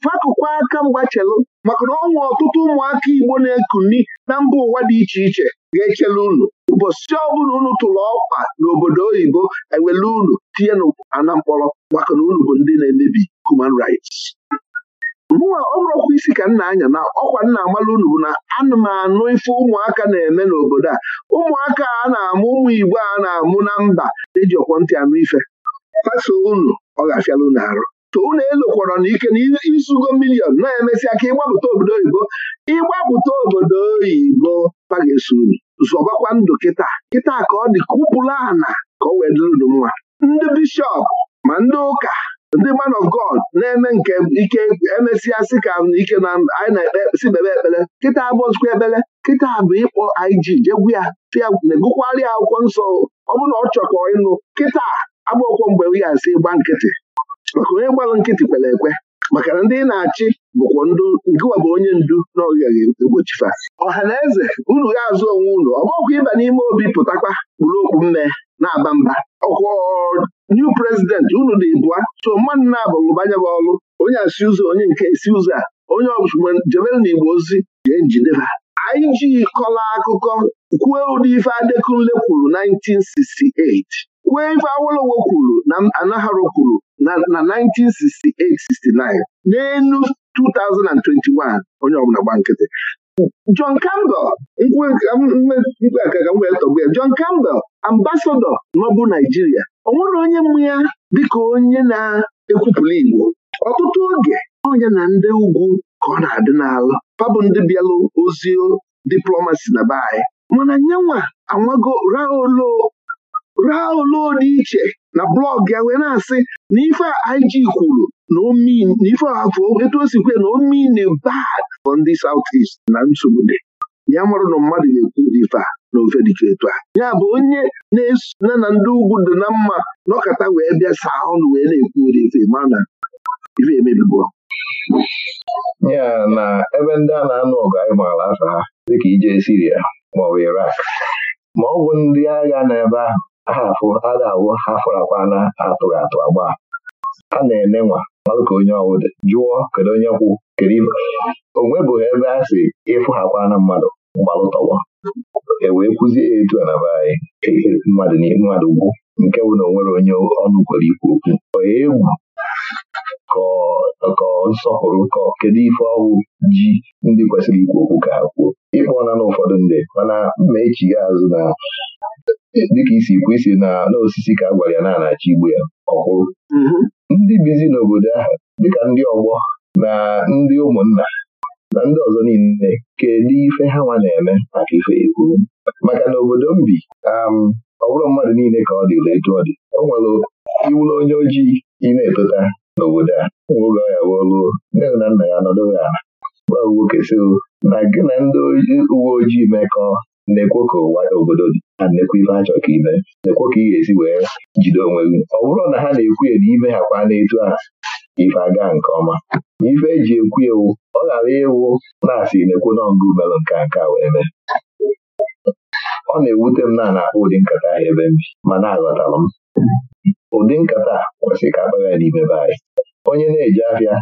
fakụkwa aka mgbachelụ maka na ọnwa ọtụtụ ụmụaka Igbo na-ekuni na mba ụwa dị iche iche ga-echele unu ụbọchị ọbụla unu tụrụ ọkwa n'obodo oyibo ewele unu tinye n'ana mkpọrọ maka na unu bụ ndị na-emebi human rights mụnwa ọ bụrụkwa isi ka nna anya na ọkwa nna amala unu bụ na anụ m anụ ife ụmụaka na-eme n'obodo a ụmụaka a na-amụ ụmụ Igbo a na-amụ na mba eji ọkwọ ntị anụ ife faso unu ọ ga-afịala arụ unu elokwara n'ike na isugo milion na-emesịa ka ịgbapụta obodo oyibo ịgbapụta obodo oyibo paga esuru zọbakwa ndụ kịta kịta ka ọ dị kupụla ụpụrụ ana ka ọ wee dịrị unu ndị bishọp ma ndị ụka ndị man of God na-eme nke ike emesịa sị ka ike na anyị na-ekpesi bebe ekpere kịta abụọzikwa ekpere kịta bụ ịkpọ ig jegwu ya na-egụkwarị akwụkwọ nsọ ọ bụrụ na ọ chọkọ ịnụ kịta abụọkwọ mgbe ya si gba nkịtị maka onye gbalụ nkịtị kwere ekwe maka na ndị na-achị bụkwa ndụ ngịwa bụ onye ndu na ọgaghị egbochifa ọha na eze unu ga-azụ onwe unu ọ ịba n'ime obi pụtakwa kpụrụ okpu mme na-aba mba ọkwọ new president unu dị bụa so mmadụ na-abụlụbanya bụ ọlụ onye asị ụzọ onye nke si ụzọ a onye ọbụla jebere na igbo ozi jee njideba anyị ji kọla akụkọ kwuo ụdị ife Adekunle kwuru 1968 kwuo ife Awolowo kwuru na Anaharo kwuru na 1968-69 n'elu 2021 onye ọbụla gba nkịtị John Campbell mkpa ka m wee tọgbu ya John Campbell ambasadọ n'ọbụ Naijiria ọ nwere onye mmụ ya dịka onye na-ekwupụla Igbo ọtụtụ oge onye na ndị ugwu ka ọ na-adị n'alụ pabụ ndị bịalụ ozi diplomasi na be anyị mana nyenwa anwago ra ra olu dị iche na blọọgụ ya wee na-asị na ife ig kwuru na omin na ife afọ etu o si kwe na omin bad for ndị South East na nsogbu dị ya marụ na mmadụ ga-ekwu dị ife a na ofe dịcha etu a ya bụ onye na-esona na ndị ugwu dị na mma nọkọta wee bịa saa ọnụ wee na-ekwu ụdị ife na ife emebibo ya na ebe ndị a na-anụ ọgụ anyị maara afa ha dịka ije Siria maọbụ Irak ma ọ bụ ndị agha n'ebe ahụ afụ ada awụ ha na atụrụ atụ agba a na eme nwa malụ ka onye ọwụdị jụọ kedu onye kwụ kedu o ebe a si ịfụ ha mmadụ gbalụtọwa e wee kwụzie etu a na be mmadụ ugwu nke bụ na o nwere onye ọnụ kwere ikwu okwu onye egwu kọọ nsọpụrụ kọọ kedu ife ọwụ ji ndị kwesịrị ikwu okwu ka ha kwuo ịkpọọla na ụfọdụ ndị mana mmaechi ya azụ na dịka isi kwu isi na n'osisi ka a gwara ya na-anachi igbu ya ọkwụrụ mm-hmm. ndị bizi n'obodo ahụ dịka ndị ọgbọ na ndị ụmụnna na ndị ọzọ niile kedu ife ha nwa na-eme maka ife ekwuru maka na obodo m bi um, ọ bụrụ mmadụ niile ka ọ dịla etu ọ dị o nwere iwụlụ onye ojii ị na-etota n'obodo a oge ọ ya wolu nne na nna ya anọdụghị ala gwa nwoke si na gị na ndị uwe ojii na-ekwo ka ụwa obodo dị na nnekwu ife a chọrọ ka ime ekwo ka ị ga-esi wee jide onwe gị ọ bụrụ na ha na-ekwu ya na ime ha kwa a ife aga nke ọma na ife eji ekwu ewu ọ ghara ịwụ na-asị nekwo n'ọngụ melụ nke nka wee mee ọ na-ewute m na na ụdị nkata ahụ ebe m bi ma na-aghọtalụ m ụdị nkata kwesịrị ka akpagha n'ime be anyị onye na-eji ahịa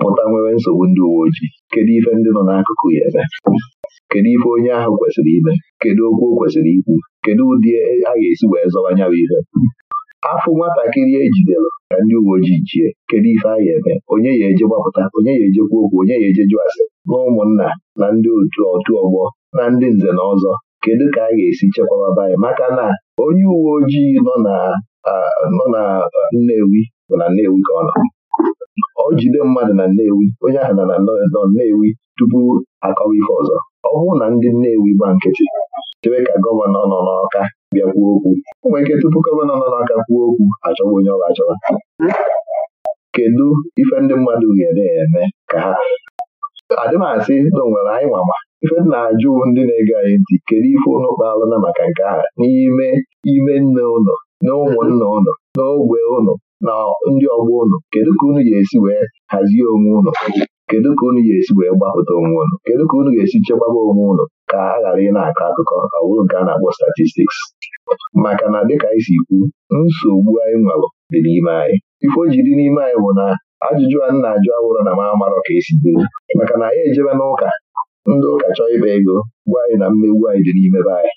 pụta nwere nsogbu ndị uwe ojii kedu ife ndị nọ n'akụkụ ya eme kedu ife onye ahụ kwesịrị ime kedu okwu o kwesịrị ikwu kedu ụdị e, a ga-esi wee zọwa anya bụ ihe afọ nwatakịrị ejidere ka ndị uwe ojii jie kedu ife a ga-eme onye ya eje gbapụta onye ya ejekwa okwu onye ya eje jụ na ụmụnna na ndị otu otu ọgbọ na ndị nze na ọzọ kedu ka a ga-esi chekwaba anyị maka na onye uwe ojii nọ na Nnewi bụ na Nnewi ka ọ nọ ọ jide mmadụ na Nnewi onye ahụ na nọ Nnewi tupu akọwa ife ọzọ ọ bụrụ na ndị Nnewi gba nkịtị chebe ka gọvanọ nọ n'Ọka bịa kwuo okwu ụmụ ike tupu gọvanọ nọ n'Ọka kwuo okwu achọwa onye ọ ga achọwa kedu ife ndị mmadụ ga-eme eme ka ha adịmasị na onwere anyị nwama ife m na-ajụ ndị na-ege anyị ntị kedu ife ụnụ kpaalụna maka nke a n'ime ime nne ụlọ na ụmụnna ụlọ ogbe ụlọ na ndị ọgbọ ụlọ kedu ka unu ga-esi wee hazie onwe ụlọ kedu ka unu ga-esi wee gbapụta onwe ụlọ kedu ka unu ga-esi chekwaba onwe ụlọ ka a ghara ị na-akọ akụkọ ọ nke a na-akpọ statistics maka na dịka anyị si kwu nsogbu anyị nwalụ dị n'ime anyị ife ji dị n'ime anyị bụ na ajụjụ a na-ajụ awụrụ na m amarọ ka esi dịrị maka na anyị ejebe n'ụka ndị ụka chọọ ịkpa ego gwa anyị na mmegbu anyị dị n'ime be anyị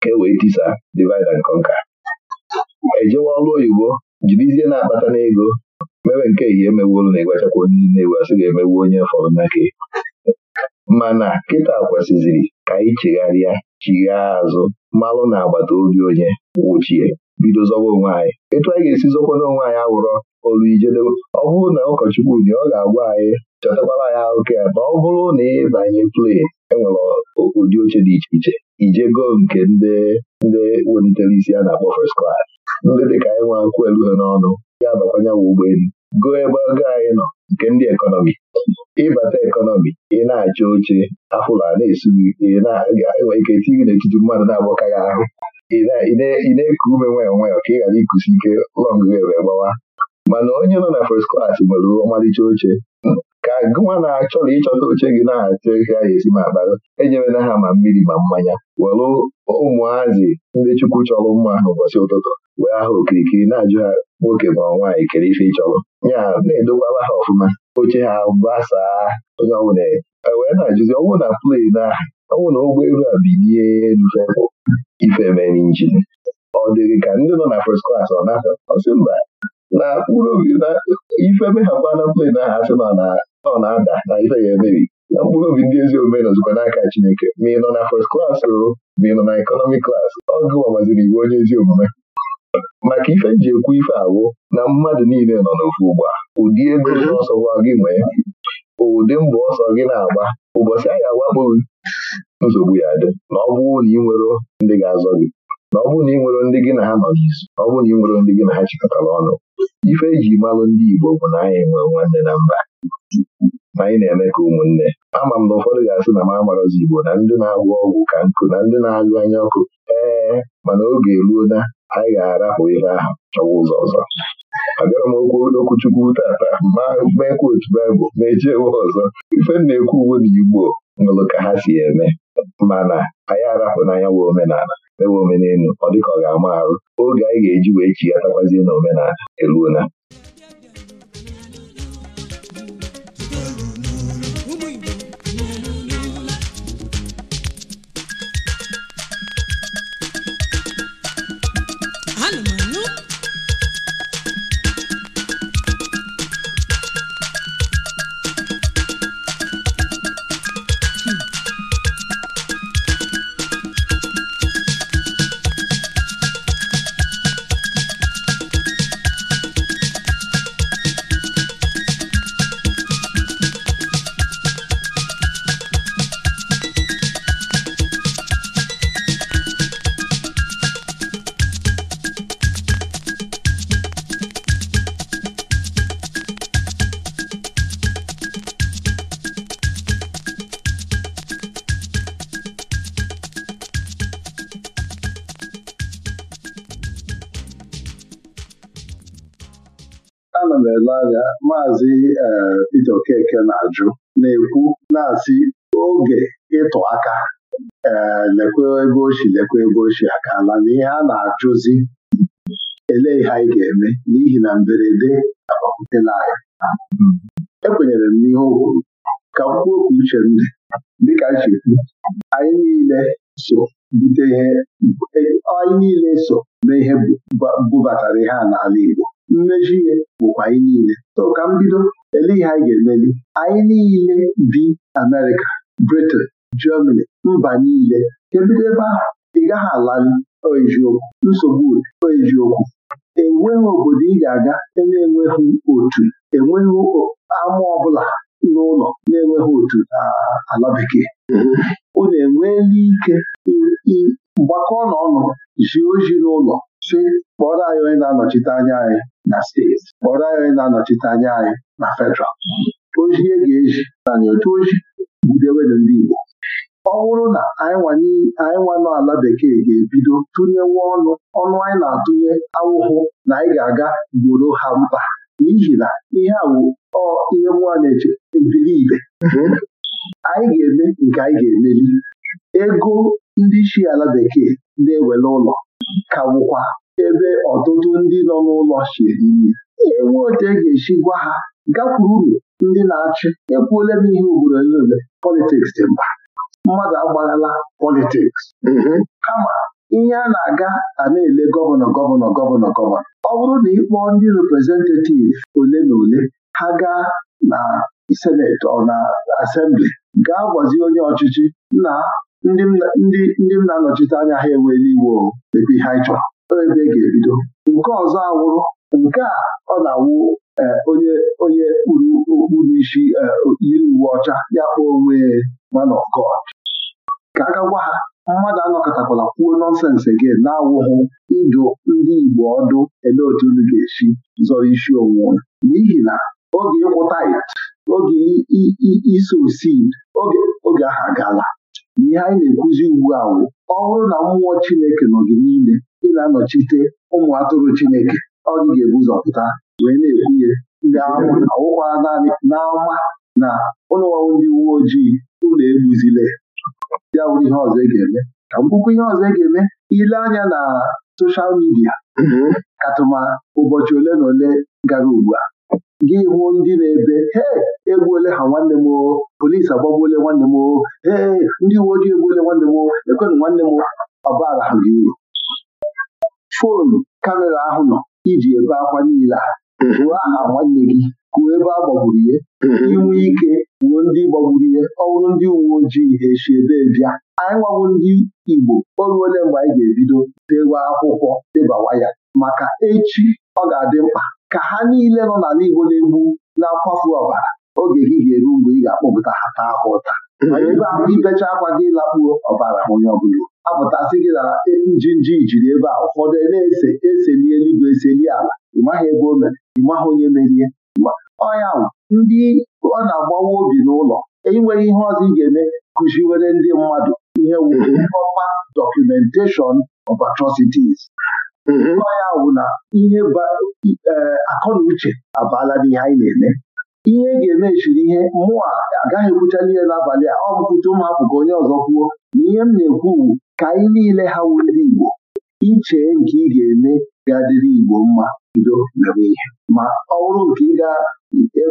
ka e wee tisa divide and conquer ejewa ọrụ oyibo jirizie na-akpata n'ego mewe nke ehihie emewolu na ịgwachakwa onye na-ewu asị ga-emewu onye fọrọ n'aka mana kịta kwesịziri ka anyị chegharịa chighaa azụ mmalụ na agbata obi onye wụchie bido zọwa onwe anyị etu anyị ga-esi zọkwana onwe anyị awụrọ olu ijedebe ọ bụrụ na ụkọchukwu dị ọ ga-agwa anyị chọtakwara anyị oke ya ma ọ bụrụ na ịbanye play enwere ụdị oche dị iche iche ije goo nke ndị ndị welitere isi a na-akpọ first class ndị dị ka anyị nwa akwụkwọ elu ha n'ọnụ ya bakwanye nwa ụgbọelu goo ebe ogo anyị nọ nke ndị ekọnọmi ịbata ekọnọmi ị na acha oche afụla na-esu na enwere ike eti gị n'etiti mmadụ na-agbọka ya ahụ ị na-eku ume nwayọọ onwe ka ị ghara ikusi ike lọngụ wee gbawa mana onye nọ na first klas nwere ọmalịcha oche ka gụwa na-achọrọ ịchọta oche gị na-achọ ihe a ga-esi ma akpara enyerela ha ma mmiri ma mmanya were ụmụazị ndị Chukwu chọrọ mma ahụ ụbọchị ụtụtụ wee aha okirikiri na-ajụ ha nwoke ma nwaanyị kere ife ịchọrọ ya na-edokwala ha ọfụma oche ha gbasaa onye ọbụla Ewee na-ajụzi ọnwụ na plane na ọnwụ na ụgbọelu a bilie ife mere injin ọ dịrị ka ndị nọ na first klas ọ na ọ ọsị mba na mkpụrụ obi na ife meghakwa na plane ahụ asị na ọ na-ada na ife ya emebi na mkpụrụ obi ndị ezi omume nọzikwa n'aka Chineke ma ị nọ na first class ma ị nọ na economic klas ọ gụwa maziri iwu onye ezi omume maka ife ji ekwu ife awụ na mmadụ niile nọ n'ofu a ụdị ego ọsọ gwa gị nwee ụdị mbọ ọsọ gị na-agba ụbọchị anyị awakpoghị nsogbu ya dị na ọ bụrụ na ị nwere ndị ga-azọ gị na ọ bụrụ na ị nwero ndị gị na ha nọ n'izu na ọ bụrụ na ị nwero ndị gị na ha chịkọtara ọnụ ife eji malụ ndị Igbo bụ na anyị nwere nwanne na mba ma anyị na-eme ka ụmụnne ama m na ụfọdụ ga-asị na m amarọzi Igbo na ndị na agwụ ọgwụ ka nkụ na ndị na-agụ anya ọkụ ee mana oge eruo na anyị ga-arapụ ihe ahụ chọwa ụzọ ọzọ abịara m okwu okwuchukwu tata ma meekwa otu baịbụl ma ejewe ọzọ ife m na-ekwu uwe na igbo nwere ka ha si eme mana anyị arapụ n'anya nwe omenala mewe omenelu ọ dịka ọ ga-ama arụ oge anyị ga-eji wee chighatakwazie na omenala eruola maazị e, Peter Okeke na-ajụ na-ekwu na-asị oge ịtụ aka ee lekwe ebe ochi lekwe ebe ochi akala na ihe a na-ajụzi ele ihe anyị ga-eme n'ihi na mberede na anyị. ekwenyere m n'ihe o kwuru ka m kwuo okwu uche m dịka nchekwu anyị niile so bute ihe e, anyị niile so na ihe bubatara ihe a n'ala Igbo mmeji ihe bụkwa anyị niile so ka m bido ele ihe anyị ga-emeli anyị niile bi Amerịka Britain Germany mba niile Ebido ebe ahụ ị gaghị alali eziokwu nsogbu eziokwu enweghị obodo ị ga-aga na-enweghị otu enweghị ama ọbụla n'ụlọ na-enweghị otu ala bekee unu mm-hmm. enweela ike gbakọọ n'ọnụ zie ozi n'ụlọ si kpọrọ anyị onye na-anọchite anya anyị na steeti kpọrọ anyị onye na-anọchite anya anyị na federal e ga-eji na otu oji budewedụ ndị Igbo ọ bụrụ na anyị nwa ala bekee ga-ebido tụnyewe ọnụ ọnụ anyị na-atụnye awụhụ na anyị ga-aga gboro ha mkpa n'ihi na ihe a ihe nwa na-eche ebiri ibe anyị ga-eme nke anyị ga-emeli ego ndị isi ala bekee na-ewere ụlọ ka bụkwa ebe ọtụtụ ndị nọ n'ụlọ si eri nri enwe otu e ga-esi gwa ha uru ndị na-achị ekwuola m ihe ugboro niile politiks dị mba mmadụ agbalala politiks mm-hmm. kama ihe a na-aga a na-ele gọvanọ gọvanọ gọvanọ gọvanọ ọ bụrụ na ịkpọọ ndị reprezentativ ole na ole ha gaa na seneti ọ na asembli gaa gwazie onye ọchịchị na ndị ndị m na-anọchite anya ha enweela iwu ebe ihe anyị chọrọ ebe e ga-ebido nke ọzọ awụrụ nke a ọ na-awụ e, onye onye kpuru okpuru isi e, yiri uwe ọcha ya kpọọ onwe man of ka a ga gwa ha mmadụ anọkọtakwala kwuo nọnsensị gị na-awụghụ ịjụ ndị Igbo ọdụ ele otu unu ga-esi zọrọ isi onwe n'ihi na oge ịkwụta oge iso oge oge ahụ agaala ihe anyị na-ekwuzi ugbu a wụ ọ bụrụ na mmụọ Chineke nọ gị niile ị na-anọchite ụmụ atụrụ Chineke ọ gị ga-ebu ụzọ pụta wee na-ekwuye ndị awụkwa naanị n'ama na ụlọọrụ ndị uwe ojii ụlọ egbuzile ya wụrụ ihe ọzọ ị e ga-eme ka mkpukwu ihe ọzọ ị e ga-eme ile anya na soshal midia mhm. katụma ụbọchị ole na ole gara ugbu a gị hụ ndị na-ebe he egbuole ha nwanne m oo polisi agbagbuole nwanne m oo ee ndị uwe ojii egbuole nwanne m oo ekwenụ nwanne m ọbara ha gị uru foonu kamera ahụ nọ iji ebe akwa niile a ruo aha nwanne gị kwuo ebe a gbagburu ihe mhm. inwe ike wuo ndị gbagburu ihe ọhụrụ ndị uwe ojii esi ebe bịa anyị nwawo ndị Igbo o ole mgbe anyị ga-ebido dewe akwụkwọ debawa ya maka echi ọ ga-adị mkpa ka ha niile nọ n'ala Igbo na-egbu na-akwafu ọbara oge gị ga-eru mgbe ị ga-akpọpụta ha taa ha ụta mhm. ibecha akwa gị lakpuo ọbara onye ọbụla apụtasị gị na nji jiri ebe a ụfọdụ na-ese eseli eluigwe eseli ala ịmaghị ebe o mere ịmaghị onye merie ọnya ndị ọ na-agbawa obi n'ụlọ enweghị ihe ọzọ ị ga-eme kụziwere ndị mmadụ ihe wuru mhm. ọma documentation of Mm-hmm. ọ ya bụ na ihe e, akọ na uche abaala n'ihe anyị na-eme ihe e ga-emechiri ihe mmụọ agaghị ekwucha n'ihe n'abalị a ọ bụkwute ụmụ hapụ ka onye ọzọ kwuo na ihe m na-ekwu ka anyị niile ha wu Igbo ichee nke ị ga-eme ga-adịrị Igbo mma bido mewe ihe ma ọ bụrụ nke ị ga e,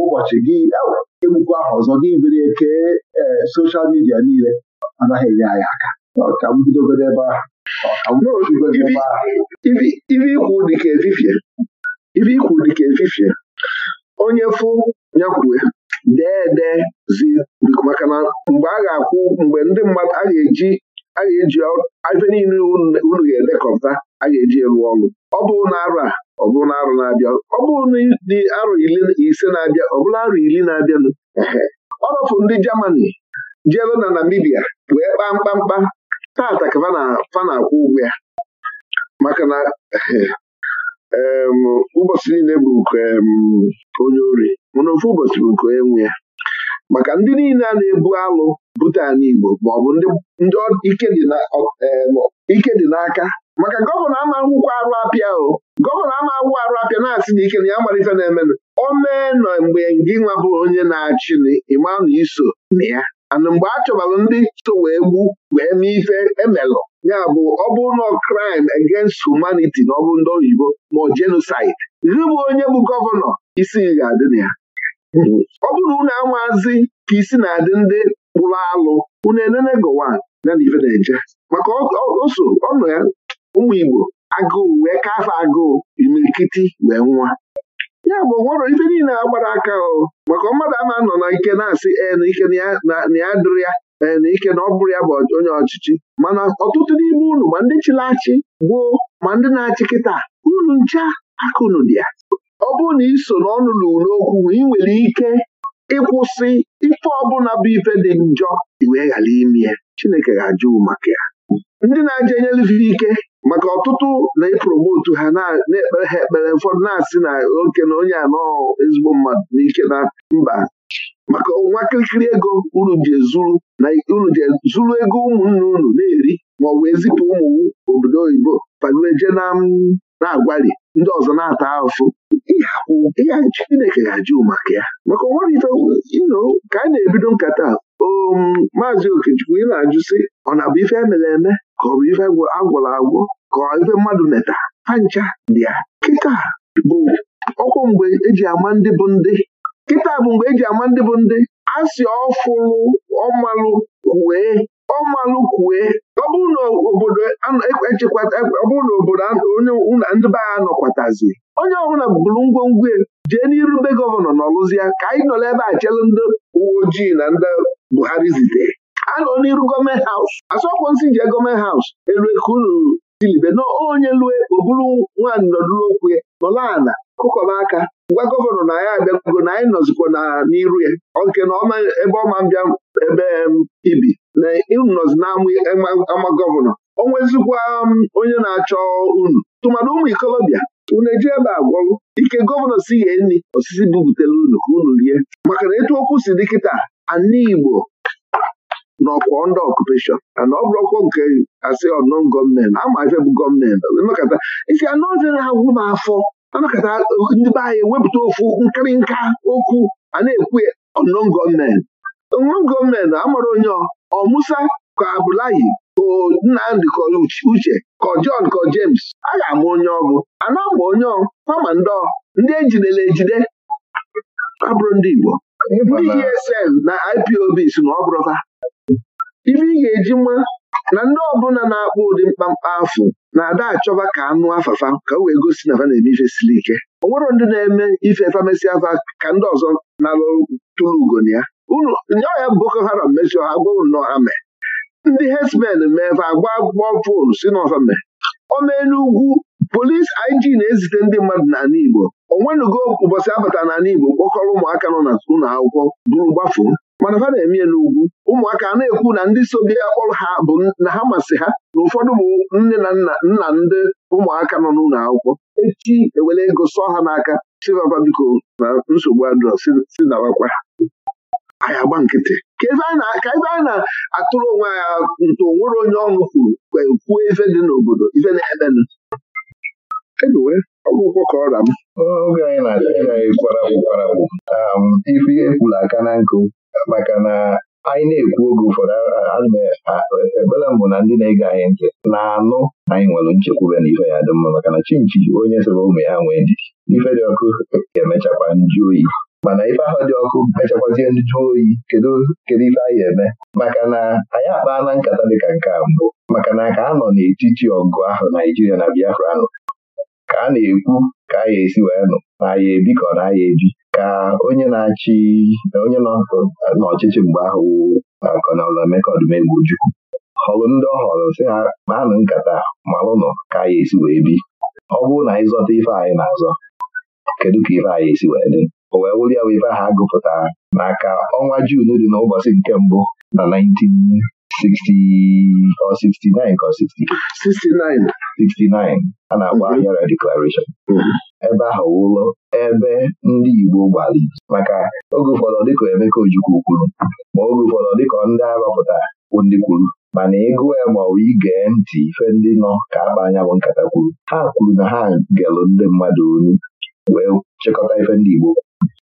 ụbọchị gị egbukwa ahụ ọzọ gị biri kee soshal midia niile anaghị enye anyị aka ọka m bidogoro ebe ahụ ibe ikwu dịka efifie ibe ikwu dịka efifie onye fụ nyakwue dee dee zi maka na mgbe a ga-akwụ mgbe ndị mmadụ a ga-eji a ga-eji ebe niile unu ga-edekọta a ga-eji elu ọlụ. ọ bụrụ na arụ a ọ bụrụ na arụ na-abịa ọ bụrụ na dị arụ ise na-abịa ọ bụrụ arụ ili na-abịanụ ọ rọfụ ndị Germany jeelu na Namibia wee kpaa mkpamkpa tata ka fa na-akwụ ụgwọ ya maka na (laughs) ụbọchị niile bụ nke onye ori mana ofu ụbọchị bụ nke onye nwe ya maka ndị niile a na-ebu alụ bute ala Igbo maọbụ ndị ike dị n'aka maka gọvanọ ama akwụkwọ arụ apịa o gọvanọ ama akwụkwọ arụ apịa na-asị na ike na ya amalite na-emenụ o mee nọ mgbe gị nwa bụ onye na-achị ịma na iso na ya ana mgbe a ndị so wee gbu wee mee ife emelụ ya bụ ọ bụrụ na crime against humanity na ọbụ ndị oyibo ma ọ genocide onye bụ gọvanọ isi ga-adị na ya ọ bụrụ na unu amazi ka isi na-adị ndị kpụrụ alụ unu enene gowa na ife na-eje maka oso ọnụ ya ụmụ Igbo agụụ wee kafe agụụ imirikiti wee nwa ya bụ nwere ife niile agbara aka o maka mmadụ a na-anọ na ike na-asị ee na ike na ya dịrị ya ee na ike na ọ bụrụ ya bụ onye ọchịchị mana ọtụtụ n'ime unu ma ndị chịlachị achị gboo ma ndị na-achị kịta unu ncha aka unu dị ya ọ bụrụ na iso n'ọnụ lụrụ n'okwu ị nwere ike ịkwụsị ife ọbụla bụ ife dị njọ iwee ghara ime ya Chineke ga-ajụ maka ya ndị na-aja enyelife ike maka ọtụtụ na-epromotu ha na-ekpere ha ekpere ụfọdụ na-asị na oke na onye anọ ezigbo mmadụ n'ike na mba maka nwa kirikiri ego unu ji ezuru na unu ji ego ụmụnne unu na-eri ma ọ bụ ezipụ ụmụ obodo oyibo pagueje na-agwali ndị ọzọ na-ata ahụhụ Chineke ga-ajụ maka ya maka ọnwarịta ino ka a na-ebido nkata Um, maazị okechukwu ị na-ajụ sị ọ na-abụ ife emere eme ka ọ bụ ife agwụrụ agwọ ka ife mmadụ meta ha dịa kịta bụ ọkwụ mgbe eji ama ndị bụ ndị kịta bụ mgbe eji ama ndị bụ ndị a si ọfụlụ ọmalụ kwue ọmalụ kwue ọ bụrụ na obodo onye ndị be ha nọkwatazi onye ọbụla bụrụ ngwongwo jee n'irube gọvanọ nọlụzi ya ka anyị nọrọ ebe a chere ndị uwe ojii na ndị Buhari zitere nọ n'iru gọọmenti haus asọkwụ nsị jee gọọmenti haus elu unu dilibe na onye lue o buru nwaanyị nọdụrụokwu ya nọla ala kụkọba aka gwa gọvanọ na ya abịago na anyị nọzikwa na n'iru ya nke na ebe ọma bịa ebe ibi na unu nọzi n'ama gọvanọ o nwezikwa onye na-achọ unu tụmadụ ụmụ ikolobịa unu eji ebe a gwọrụ ike gọvanọ si ye nri osisi bupụtara unu ka unu rie maka na etu okwu si dịkịta ana Igbo nọkwa ndị ọkupeshọn ana ọ bụrụkwọ nke asị ọnọ gọọmenti amafe bụ gọọmenti nọkata isi anụ ọzọ na-agwụ m afọ anọkata ndị be anyị wepụta ofu nkịrịnka okwu a na-ekwu ọnọ gọọmenti ọnọ gọọmenti amara onye ọ Musa ka Abdullahi ka Nnamdị ka Uche ka John ka James a ga-ama onye ọgụ ana ama onye ọ kpama ndị ejidela ejide abụrụ ndị Igbo DSM e na IPOB si na ọ ibe ife ị ga-eji nwa na ndị ọbụla na akpụ ụdị mkpamkpa afụ na-ada achọba ka anụ afafa ka o wee gosi na fa na-eme ife siri ike o nwere ndị na-eme ife famesi afa ka ndị ọzọ na-alụ tụrụ ugo na ya unu nye ọhịa Boko Haram mesịa ha gwụrụ nnọọ ha mee ndị herdsmen mee fa agba gbọ fon si n'ọfa mee o mee n'ugwu polisi IG na-ezite ndị mmadụ n'ala Igbo onwenugo ụbọchị abata n'ala Igbo kpọkọrọ ụmụaka nọ na ụlọ akwụkwọ bụrụ gbafuo mana fa na-eme n'ugwu ụmụaka a na-ekwu na ndị so bịa akpọrọ ha bụ na ha masị ha na ụfọdụ bụ nne na nna nna ndị ụmụaka nọ n'ụlọ akwụkwọ echi ewere ego sọ ha n'aka chivapa biko na nsogbu adrọ si dabakwa anyị agba nkịtị ka ebe anyị na-atụrụ onwe ha nto nwere onye ọṅụ kwuru kwuo ife dị n'obodo ife na-emenụ Anyway, ọgwụgwọ ka ọra m oge anyị na-achịkwakwara kwụkwarapụ um, ife kwuru aka na nkụ maka na anyị na-ekwu oge ụfọdụ ekpere mbụ na ndị na-ege anyị ntị na-anụ anyị nwere nchekwube na ife ya dị mma maka na chinchi onye sịrị ụmụ ya nwee ndidi ife dị ọkụ emechakwa nju oyi mana ife ahụ dị ọkụ mechakwazie nju oyi kedu kedu ife anyị eme maka na anyị akpaala nkata dịka nke a mbụ maka na ka a nọ n'etiti ọgụ ahụ Naijiria na Biafra nọ ka a na-ekwu ka a ya esi wee nụ na ya ebi ka ọ na ya ebi ka onye na-achị onye n'ọchịchị mgbe ahụ Kọnel Emeka Odumegwu-Ojukwu họrụ ndị ọ họrọ sị ha kpaanụ nkata malụnụ ka a ya esi wee bi ọ bụrụ na anyị zọta ife anyị na-azọ kedu ka ife anyị esi wee dị o wee wụrụ ya bụ ife ahụ agụpụtara maka ọnwa Juun dị n'ụbọchị nke mbụ na 19 60 or 69 or 69 a na-akpọ ahịara deklarashọn ebe ahụ ụlọ ebe ndị Igbo gbara maka oge ụfọdụ dịka Emeka Ojukwu kwuru ma oge ụfọdụ dịka ndị arọpụtara ndị kwuru mana ịgụ ya e ma ọ igee ntị ife ndị nọ ka akpa anya bụ nkata kwuru ha kwuru na ha gelụ ndị mmadụ olu wee chịkọta ife ndị Igbo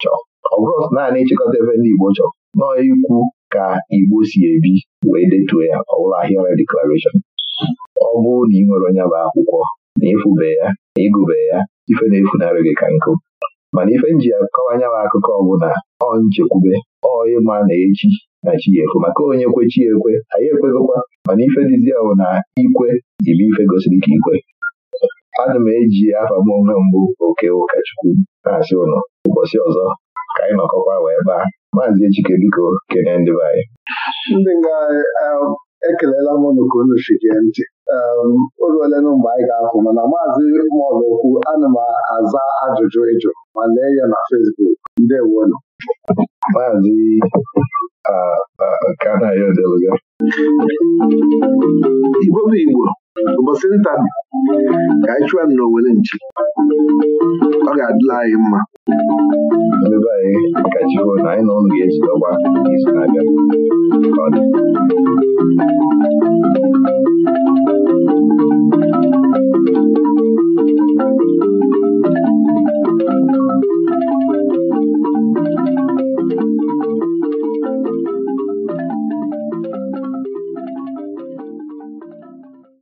chọọ ọ bụrụ naanị ịchịkọta ife ndị Igbo chọọ nọọ ikwu ka Igbo si ebi wee detuo ya ọbụla ahịa deklarashọn ọ bụrụ na ị nwere onye bụ akwụkwọ na ịfụbe ya na ịgụbe ya ife na-efunarị gị ka nkụ mana ife nji akọwa anyanwụ akụkọ ọbụla ọ nchekwube ọ ịma na echi na chi ekwe maka onye kwe chi ekwe anyị ekwegokwa mana ife dịzi na ikwe ibe ife gosiri ka ikwe ana m eji afa m onwe mbụ oke ụkọchukwu na-asị ụnọ. ụbọchị ọzọ ka anyị nọkọkwa wee a, maazị Ejike biko kene ndị be anyị ndị nga um, ekelela m unu ka unu chigee ntị um, o ruole na mgbe anyị ga akwụ mana maazị okwu, ana m aza ajụjụ ịjụ ma lee ya na Fesbuk Facebook ndewonu maazị Kanayodeluga Igbo bụ Igbo ụbọchị nta ka anyị chụọ n'Owere nchi ọ ga-adịla anyị mma ebe anyị gajiwo na anyị na ụnụ ga-esi ọgba izu na-abịa Thank you.